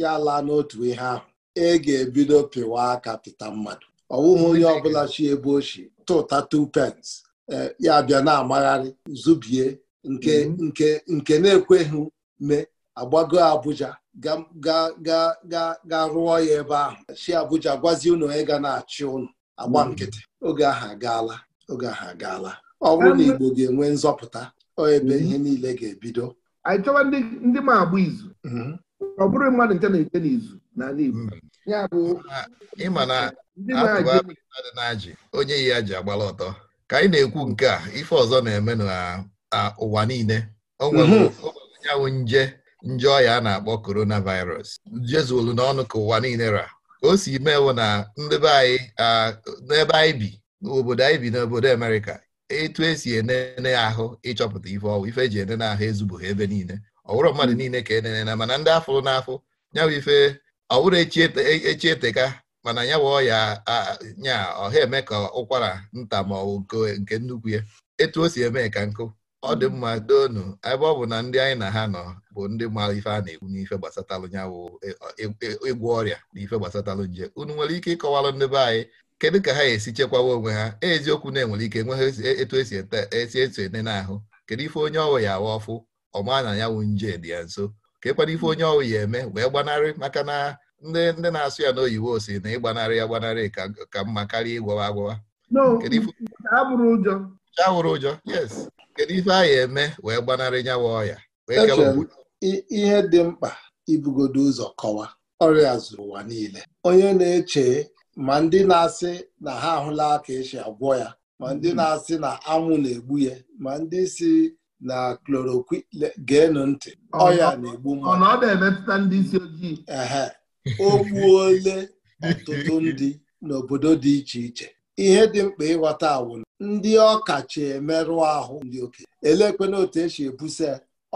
ya laa n'otu ihe ahụ ị e ga-ebido pịwa aka pịta mmadụ ọ bụghị onye ọbụla chi ebe ochi tụta two pence e, ya bịa na-amagharị zubie nke mhm. nke nke na-ekweghị mee agbago Abuja ga rụọ ya ebe ahụ si Abuja gwazie unu onye ga na-achị unu agba mhm. nkịtị oge ahụ agaala oge ahụ agaala ọ bụrụ na Igbo ga-enwe nzọpụta ebe mhm. ihe niile ga-ebido anyị chọwa ndị ma agba izu mhm. ọ bụrụ mmadụ nche na-eche n'izu n'ala Igbo mhm. ya bụ na mmadụ na-ajị onye ya ji agbala ọtọ ka anyị na-ekwu nke a ife ọzọ na-eme n'ụwa niile o nwere mhm. nje nje ọya a na-akpọ coronavirus jezuolu n'ọnụ ka ụwa niile ra ka o si mewo na ndị be anyị n'ebe anyị bi n'obodo anyị bi n'obodo Amerịka etu esi enene ahụ ịchọpụta ife ọwụ ife eji enene ahụ ezubụghị ebe niile ọwụrụ mmadụ hmm. niile ka enene na mana ndị afọ n'afọ nyawa ife ọwụrụ echi eteka e, e mana ya ọya ya nya ọha eme ka ụkwara nta ma ọ nke nnukwu ya etu o si eme ka nkụ ọ dị hmm. mma doonu ebe ọ bụ na ndị anyị na ha nọ bụ ndị maara ife a na-ekwu n'ife gbasatalụ nyawụ ịgwọ e, ọrịa na ife gbasatalụ nje unu nwere ike ịkọwalụ ndị anyị kedu ka ha esi chekwawa onwe ha e, eziokwu na-enwere ike ha e, etu esi esi eso ene n'ahụ kedu ife onye ọwụ ya awa ọfụ ọma na ya wụ nje dị ya nso kekwana ife onye ọwụ ya eme wee gbanarị maka na ndị ndị na-asụ ya na oyiwo si na ịgbanarị ya gbanarị ka mma karịa ịgwawa agwawa awụrụ ụjọ yes kedu ife a ya eme wee gbanarị nyawa ọya ihe dị mkpa ibugodo ụzọ kọwa ọrịa zuru ụwa niile onye na-eche ma ndị na-asị na ha ahụla ka esi agwọ ya ma ndị hmm. na-asị na anwụ na-egbu ya ma ndị si na chloroquine geenụ ntị ọya na-egbu mmadụ ọ na-emetụta ndị isi ojii ehe (laughs) o gbuole ọtụtụ ndị n'obodo dị iche iche ihe dị mkpa ịghọta awụ ndị ọkacha emerụ ahụ ndị oke elekwena otu esi ebusa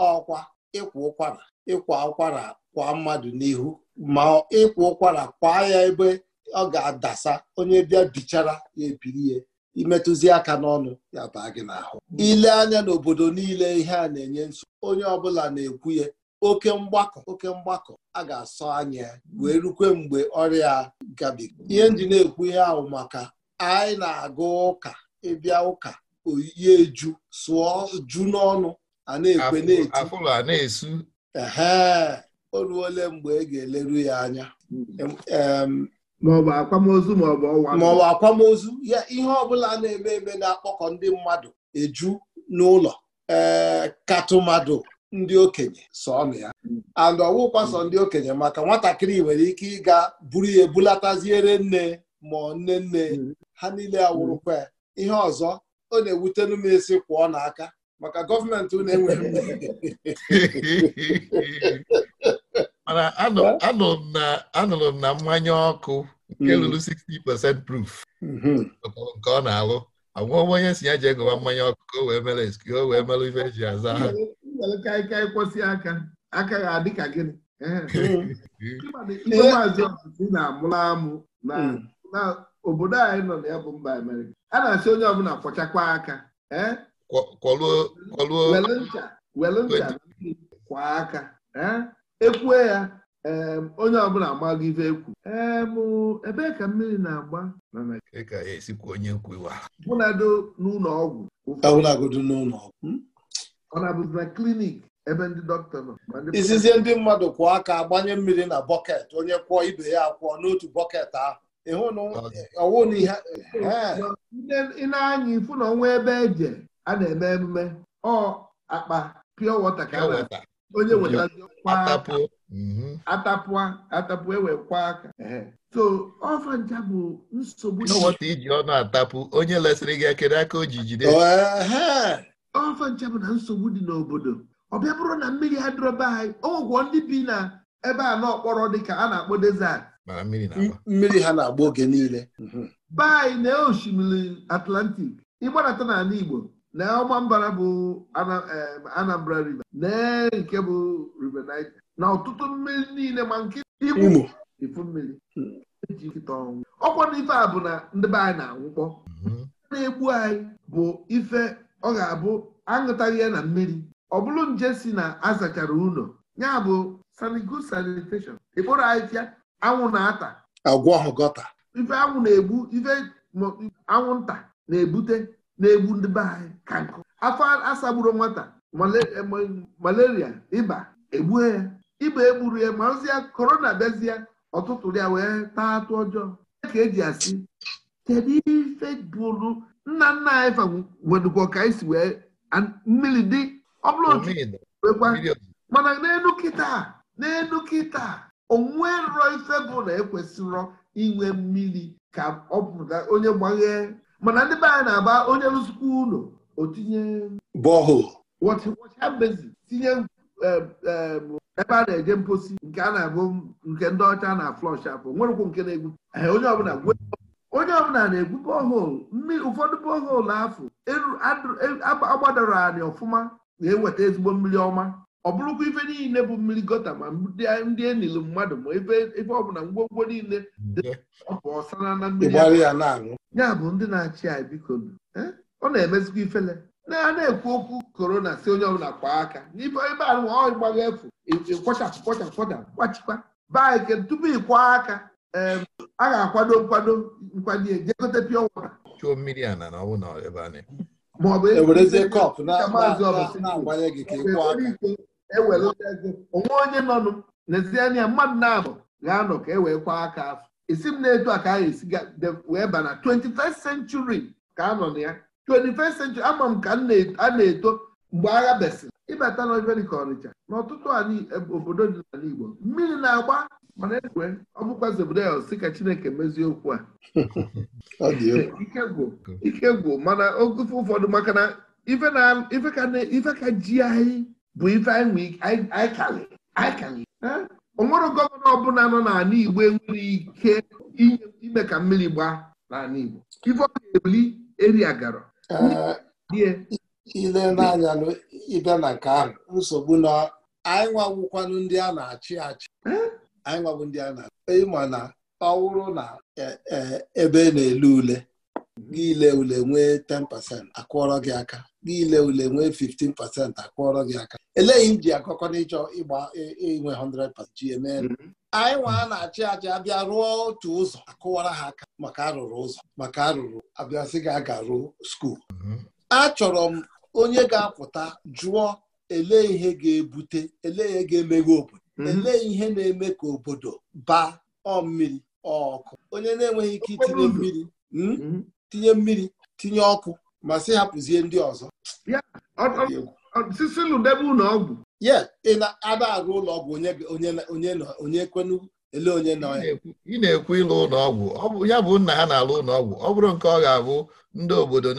ọkwa ịkwa ụkwara ịkwa ụkwara kwa mmadụ n'ihu ma ịkwa ụkwara kwaa ya ebe ọ ga-adasa onye bịa bichara ya ebiri ya imetụzi aka n'ọnụ ya baa gị n'ahụ ile anya n'obodo niile ihe a na-enye nso, onye ọbụla na-ekwu ya oke mgbakọ oke mgbakọ a ga-asọ anya wee rukwe mgbe ọrịa gabiga ihe ndị na-ekwu ihe ahụ maka anyị na agụ ụka ịbịa ụka oyiye eju sụọ ju n'ọnụ a na-ekwe na-eti Ee, o ruole mgbe ị e ga-eleru ya anya hmm. maọbụ akwamozu maọbụ ọwa maọbụ akwamozu ya ihe ọbụla na-eme eme na-akpọkọ ndị mmadụ eju n'ụlọ ee eh, katụmadụ ndị okenye sọnụ ya and ọwụkwa sọ ndị okenye maka nwatakịrị nwere ike ịga buru ya ebulataziere nne ma nne nne ha niile awụrụkwa ya ihe ọzọ ọ na-ewutenu m isi kwụọ n'aka maka gọọmenti unu enweghị (laughs) mana anụrụ m na mmanya ọkụ nke lụrụ hmm. 60% proof hmm. nke ọ na-alụ anwụọ onye si ya je gụwa mmanya ọkụ ka o wee mere eski o wee mere ife eji aza ha aka aka ga adị ka hmm. na-amụla amụ na obodo anyị nọ na ya bụ mba Amerịka a na-asị onye ọbụla kwọchakwa aka kwọluo ncha kwa aka ekwue ya onye ọbụla agbago ife ekwu ebe ka mmiri na-agba bụnado n'ụlọ ọgwụ ọ hmm? na-abụzi na klinik ebe ndị dọkịta nọ izizi ndị mmadụ kwụọ aka gbanye mmiri na bọket onye kwụọ ibe ya kwụọ n'otu bọket ahụ ị anya ifu na ọnwa ebe eje a na-eme emume ọ akpa pịọ wọta ka a na-ata onye wetazi ọkwa atapụa atapụ mm-hmm. ewekwa aka so ọfa ncha bụ nsogbu n'ọwata iji ọnụ atapụ onye lesịrị gị akere aka o ji jide oh, ọfa ncha bụ na nsogbu dị n'obodo ọ bịa bụrụ na mmiri adịrọba anyị ọgwụgwọ ndị bi na ebe a n'ọkpọrọ dịka a na-akpọ desert mmiri ha na-agba oge niile be anyị na osimiri Atlantic ịgbanata n'ala Igbo na ọgba mbara bụ Anambra River lee nke bụ River Niger na ọtụtụ mmiri niile ma nke Imo efu mmiri eji nkịta ọnwụ ọkwa na ife a bụ na ndị be anyị na-anwụkpọ mhm. na-egbu anyị bụ ife ọ ga-abụ aṅụtaghị ya na mmiri ọ bụrụ nje si na azachara ụlọ ya bụ sanigo sanitation ịkpụrụ anyị tịa anwụ na-ata agwọ gọta ife anwụ na-egbu ife anwụ nta na-ebute na-egbu ndị be anyị ka nkụ afọ asagburu nwata eh, malaria ịba egbue ya ịba egburu ya ma ozi korona bịazie ọtụtụ ya wee taa atụ ọjọọ ka eji asị kedu ife bụrụ nna nna anyị fa wedụkwa ka anyị si wee mmiri dị ọ bụrụ otu wekwa mana n'elu kịta n'elu kịta onwerọ ife bụ na ekwesịrọ inwe mmiri ka ọ pụta onye gbaghee mana ndị be anyị na-agba onye rụzikwa ụlọ otinye tinye um, um, ebe a na-eje mposi nke a na-abụ nke ndị ọcha na flọsh afọ nwerekwu nke na-egwu onye ọbụla na-egwu bọhol ụfọdụ bọhol afọ agbadoro e, anyị ọfụma na-eweta ezigbo mmiri ọma ọ bụrụkwa ife niile bụ mmiri gota ma ndị enilu mmadụ ma ebe ọbụla ngwongwo niile ọsara na mmiri ya bụ ndị na-achị anyị biko e? ọ na-emezikwa ifele na a na-ekwu okwu korona si onye ọbụla kwaa aka n'ebe ahụ ịgbaga efu kwachapụ kwachapụ kwachapụ kwachikwa baa eke tupu ịkwa aka a ga-akwado nkwado nkwado ejegote pịọ na maọbụ ego maazị ọbụla ewelụtago onwe onye nọ n'ezianị ya mmadụ na-anọ ga-anọ ka e wee kwa aka afọ isi m na-etu a ka anyị esi wee ba na 21st century ka a nọ na ya 21st century ama m ka a na-eto mgbe agha besịrị ịbata na ka Ọnịcha na ọtụtụ e- obodo dị n'ala Igbo mmiri na-agba mana egwe ọ bụkwazi obodo ya si ka Chineke mezie okwu a (laughs) (laughs) ike gwụ mana oge ụfọdụ maka na ife ka ji anyị bụ ife anyị kali o nwere gọvanọ ọbụla nọ n'ala Igbo enwere ike ime ka mmiri gbaa n'ala Igbo ife ọ ga-ebuli eria gara eh, ile n'anya ịbịa na nke ahụ nsogbu na anyị nwawụkwanụ ndị a na-achị achị eh? anyị nwabụ ndị a na-achị ma na ọ wụrụ na eh, ebe na-ele ule niile ule nwee 10% akwọrọ gị aka niile ule nwee 15% akwọrọ gị aka eleghị m ji akọkọ n'ịchọ ịgba inwe 100% ji eme anyị nwa na-achị achị abịa rụọ otu ụzọ akụwara ha aka maka arụrụ ụzọ maka arụrụ abịasị gị aga ruo skuul achọrọ m onye ga-apụta jụọ ele ihe ga-ebute ele ihe ga-emeghe obodo mm-hmm. elee ihe na-eme ka obodo baa ọmmiri mmiri ọkụ onye na-enweghị ike itinye mmiri hmm? mm-hmm. tinye mmiri tinye ọkụ ma si hapụzie ndị ọzọ ye ị na-ada arụ ụlọ ọgwụ onye ekwenu ele onye nọ ya. ị na-ekwu ịlụ ụlọ ọgwụ ya bụ nna ha na-alụ ụlọ ọgwụ ọ bụrụ nke ọ ga-abụ ndị obodo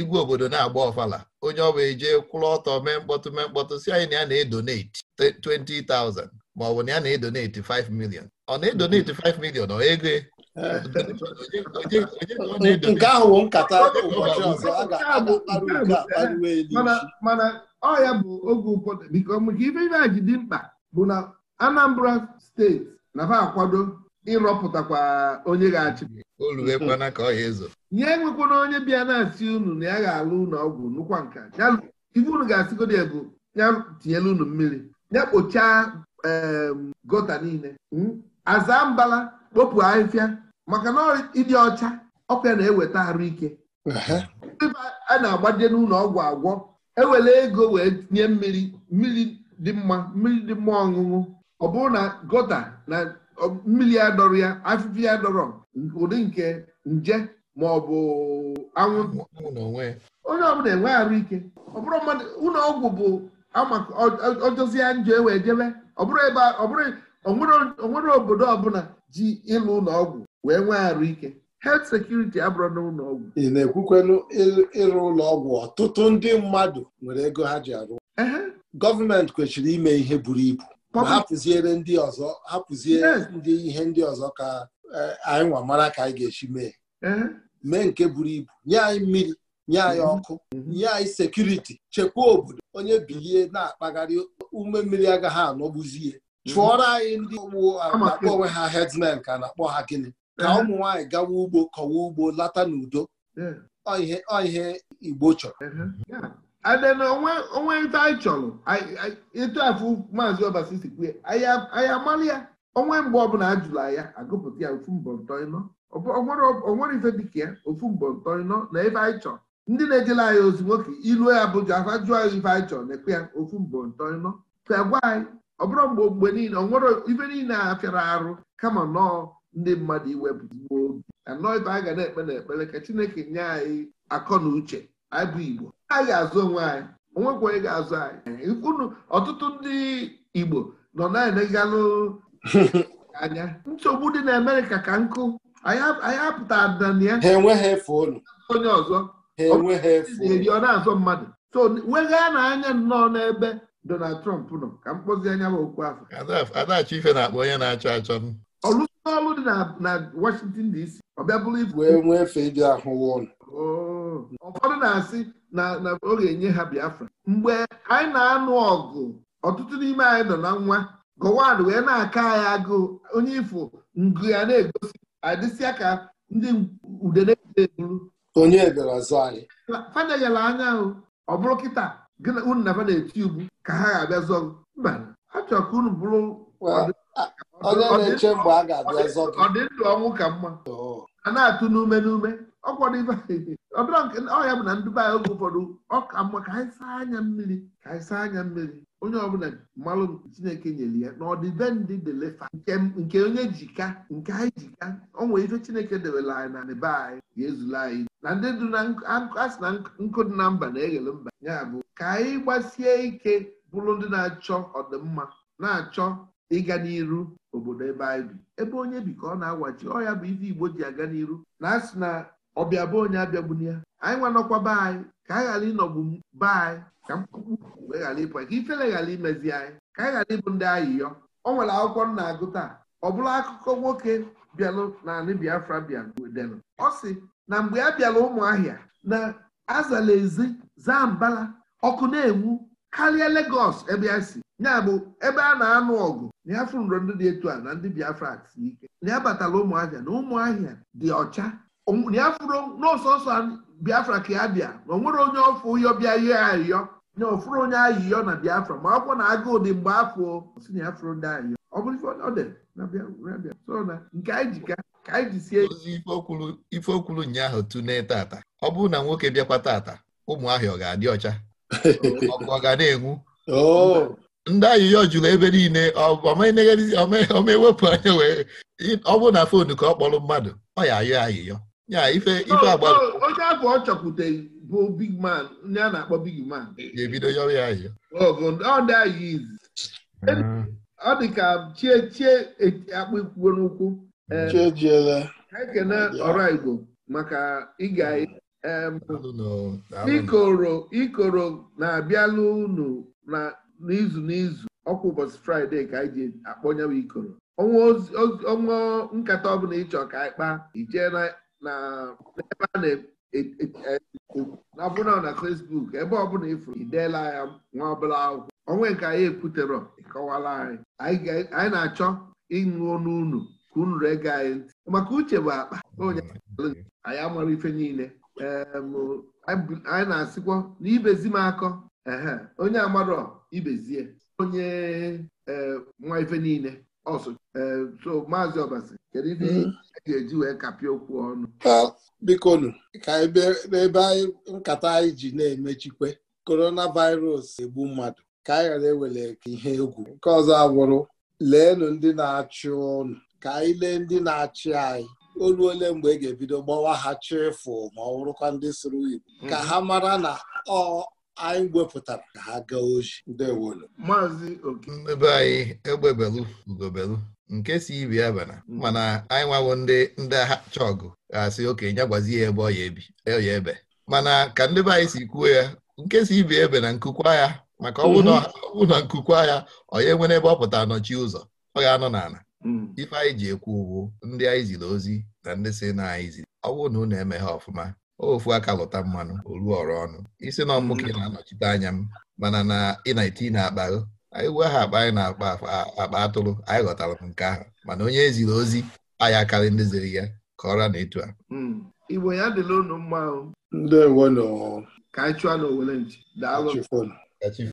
igwe obodo na-agba ọfala onye ọ bụ eje kwụrụ ọtọ mee mkpọtụ mee mkpọtụ si anyị na ya na edoneti 20,000 maọbụ na ya na edoneti 5 milion ọ na-edonate 5 million ọ ego e. nke ahụ bụ nkata ụbọchị ọzọ a ga-akparịwe mana ọ ya bụ oge ụfọdụ biko maka ife ife ji dị mkpa bụ na Anambra steeti na ha akwado ịrọpụtakwa onye ga-achị nye enwekwana onye bịa na-asị unu na ya ga-alụ ụlọ ọgwụ nụkwa nka ife unu ga-asịgodo ya ya tinyela unu mmiri ya kpochaa gota niile hmm? aza mbala kpopụ ahịhịa maka na ịdị ọcha ọkwa na-eweta arụ ike a na-agbaje n'ụlọ ọgwụ agwọ ewele ego wee nye mmiri mmiri dị mma mmiri dị mma ọṅụṅụ ọ bụrụ na gota na mmiri ya dọrọ ya afịfịa ya dọrọ ụdị nke nje ma ọ bụ anwụnta onye ọbụla enwe arụ ike ọ bụrụ mmadụ ụlọ ọgwụ bụ ọjọzie njọ ewee jebe ọ bụrụ ebe ọ bụrụ onwere obodo ọbụla ji ịlụ ụlọ ọgwụ wee nwee arụ ike health security abụrụ n'ụlọ ọgwụ ị na-ekwukwenu ịrụ ụlọ ọgwụ ọtụtụ ndị mmadụ nwere ego ha ji arụ gọọmenti kwesịrị ime ihe buru ibu hapụziere ndị ọzọ hapụzie ndị ihe ndị ọzọ ka e, anyị nwa mara ka anyị ga-esi mee mee nke buru ibu nye anyị mmiri nye anyị mhm. ọkụ nye anyị sekuriti chekwaa obodo onye bilie na-akpagharị ume mmiri agaghị anọgbuzie Mhm. chụọrọ anyị ndị ugbo uh, akpọ onwe ha herdsmen ka na-akpọ ha gịnị ka eh. ụmụ nwaanyị gawa ugbo kọwa ugbo lata n'udo eh. ihe igbo chọrọ eh, uh, onwe ite anyị chọrọ ịtụ afụ maazị ọbasi sikwu anyị amalị ya onwe mgbe ọbụla a jụrụ ya agụpụta ya ofu mbọ ntọịnọ onwere ife dịka ya ofu mbọ ntọịnọ na ife anyị chọrọ ndị na-ejela anyị ozi nwoke ilu ya bụ jụ afa jụọ ya ife anyị chọrọ na-ekwe ya ofu mbọ ntọịnọ ka gwa anyị ọ bụrụ mgbe mgbe niile ọ nwere ife niile a fịara arụ kama nọọ ndị mmadụ iwepụgbuo obi anọọ ibe a ga na-ekpe na ekpere ka Chineke nye anyị akọ na uche anyị Igbo anyị ga-azụ onwe anyị onwekwa onye ga-azụ anyị unu ọtụtụ ndị Igbo nọ na-enegalụ (laughs) anya nsogbu dị na Amerịka ka nkụ anyị apụta na ya onye ọzọ ọ na azụ mmadụ so weghaa na anya nnọọ n'ebe Donald Trump nọ ka m kpọzie anya m okwu afọ Adachi Ife na-akpọ onye na-achọ achọ m ọlụsị ọlụ dị na Washington DC ọ bịa bụrụ ibu wee nwee efe dị ahụ oh. ụfọdụ na-asị na ọ ga-enye ha Biafra mgbe anyị na-anụ ọgụ ọtụtụ n'ime anyị nọ na nwa gọwad wee na-aka anyị agụụ onye ifo ngụ ya na-egosi adịsịa ka ndị ude na-eburu onye ebere azụ anyị fadanyela anya ọ bụrụ kịta gị na unu naba na-eti ugbu ka ha ga-abịa zọọ mba achọrọ ka unu bụrụ uh, ọdịndụ ọnwụ ka mma a na-atụ n'ume n'ume ọ ya bụ na ndụba ya oge ụfọdụ ọ ka mma ka anyị saa anya mmiri ka anyị saa anya mmiri onye ọbụla mmalụ chineke nyere ya na ọdịbendị delefa nke onye jika nke anyị jika o ife chineke debere anyị na be anyị ga-ezula anyị na ndị du na asị na nkụ dị na mba na-eghele mba ya bụ ka anyị gbasie ike bụrụ ndị na-achọ ọdịmma na-achọ ịga n'iru obodo ebe anyị bi ebe onye bi ka ọ na-agwaji ọ ya bụ ife Igbo ji aga n'iru na asị na ọbịa bụ onye abịagbuni ya anyị nwanọkwaba anyị ka anyị ghara ịnọgbu be anyị ka mkpụkpụ wee ghara ịpụ ka ifele ghara imezi anyị ka anyị ghara ịbụ ndị ayịyọ ọ nwere akwụkwọ nna na-agụ taa ọ bụrụ akụkọ nwoke bịalụ na anị Biafra bịa ọ na mgbe a bịara ụmụahịa na azala ezi zaa mbala ọkụ na-enwu karịa Legọs ebe ya si ya bụ ebe a na-anụ ọgụ na ya fụrụ ndị dị etu a na ndị Biafra si ike na ya batara ụmụahịa na ụmụahịa dị ọcha na ya fụrụ n'ọsọsọ Biafra ka ya bịa na onwere onye ọfụ ụyọ bịa ihe ayịyọ na ofụrụ onye ayịyọ na Biafra ma akwụkwọ na agụụ dị mgbe afọ si na ya fụrụ ndị ayịyọ ọ bụrụ ọ dị na Biafra so na nke anyị jika ka anyị jisie ozi ife okwuru ụnyaahụ tune tata ọ bụrụ na nwoke bịakwa tata ụmụ ahịa ọ ga-adị ọcha (laughs) ọkụ ọ ga na-enwu oh. ndị ayịyọ jụrụ ebe niile omewepụ anya wee ọ bụrụ na fonu ka ọ kpọrọ mmadụ ọ ya ayọ ayịyọ ya ife ife agbara onye ahụ ọ chọkwuteghị bụ big man ndị a na-akpọ big man ga-ebido yọrọ ya ayịyọ oh, ọ dị hmm. chie chie e, akpụ ikwuo n'ụkwụ ekene mm. ọraigbo maka ịga mm. ikoro ikoro na-abịalụ unu n'izu n'izu ọkwa ụbọchị fraịde ka anyị ji akpọnye ikoro ọnwa nkata ọbụla ịchọ ka anyị kpaa ijee na ebe a na-abụna e, e, e, na Facebook ebe ọbụla ịfụrụ ideela ya nwa ọbụla akwụkwọ ọnwe nke anyị ekwutere ịkọwala anyị anyị na-achọ ịṅụ nunu ka unu anyị maka uche bụ akpa hmm. anyị amara ife niile anyị na-asịkwa na ibezi m akọ onye amarọ ibezie onye e, nwa ife niile ọsụ e, so maazị ọbasi kedu ife hmm. e ga-eji wee kapịa okwu ọnụ bikonu ka n'ebe anyị nkata anyị ji na-emechikwe coronavirus egbu mmadụ ka anyị ghara ewere ihe egwu nke ọzọ abụrụ leenụ ndị na-achụ ọnụ! ka anyị lee ndị na-achị anyị olu ole mgbe e ga-ebido gbawa ha chefu ma ọ bụrụkwa ndị sụrụ Igbo mhm. ka ha mara na ọ anyị wepụtara ka ha gaa oji ndewolu maazị okinebe anyị egbebelu ugobelu nke si ibi abana mhm. mana anyị nwawo ndị ndị acha ọgụ ga-asị oke ya gwazi ya ebe ọ e ya ebe mana ka ndị be anyị si kwuo ya nke si ibi ebe na nkukwa ya maka ọ bụ mhm. na nkukwa ya ọ ya enwere ebe ọ pụtara nọchi ụzọ ọ ga-anọ n'ala Mm. ife anyị ji ekwu ugwu ndị anyị ziri ozi na ndị si na anyị ziri ọ bụrụ na unu eme ha ọfụma ofu aka lụta mmanụ olu ọrụ ọnụ isi na ọmụke mm. na-anọchite anya m mana na ị na-eti na-akpa anyị wee ha akpa anyị na-akpa akpa atụrụ anyị ghọtara m nke ahụ mana onye ziri ozi anyị akarị ndị ziri ya ka ọra na etu a mm. ya ndị ka anyị chụọ na owere daalụ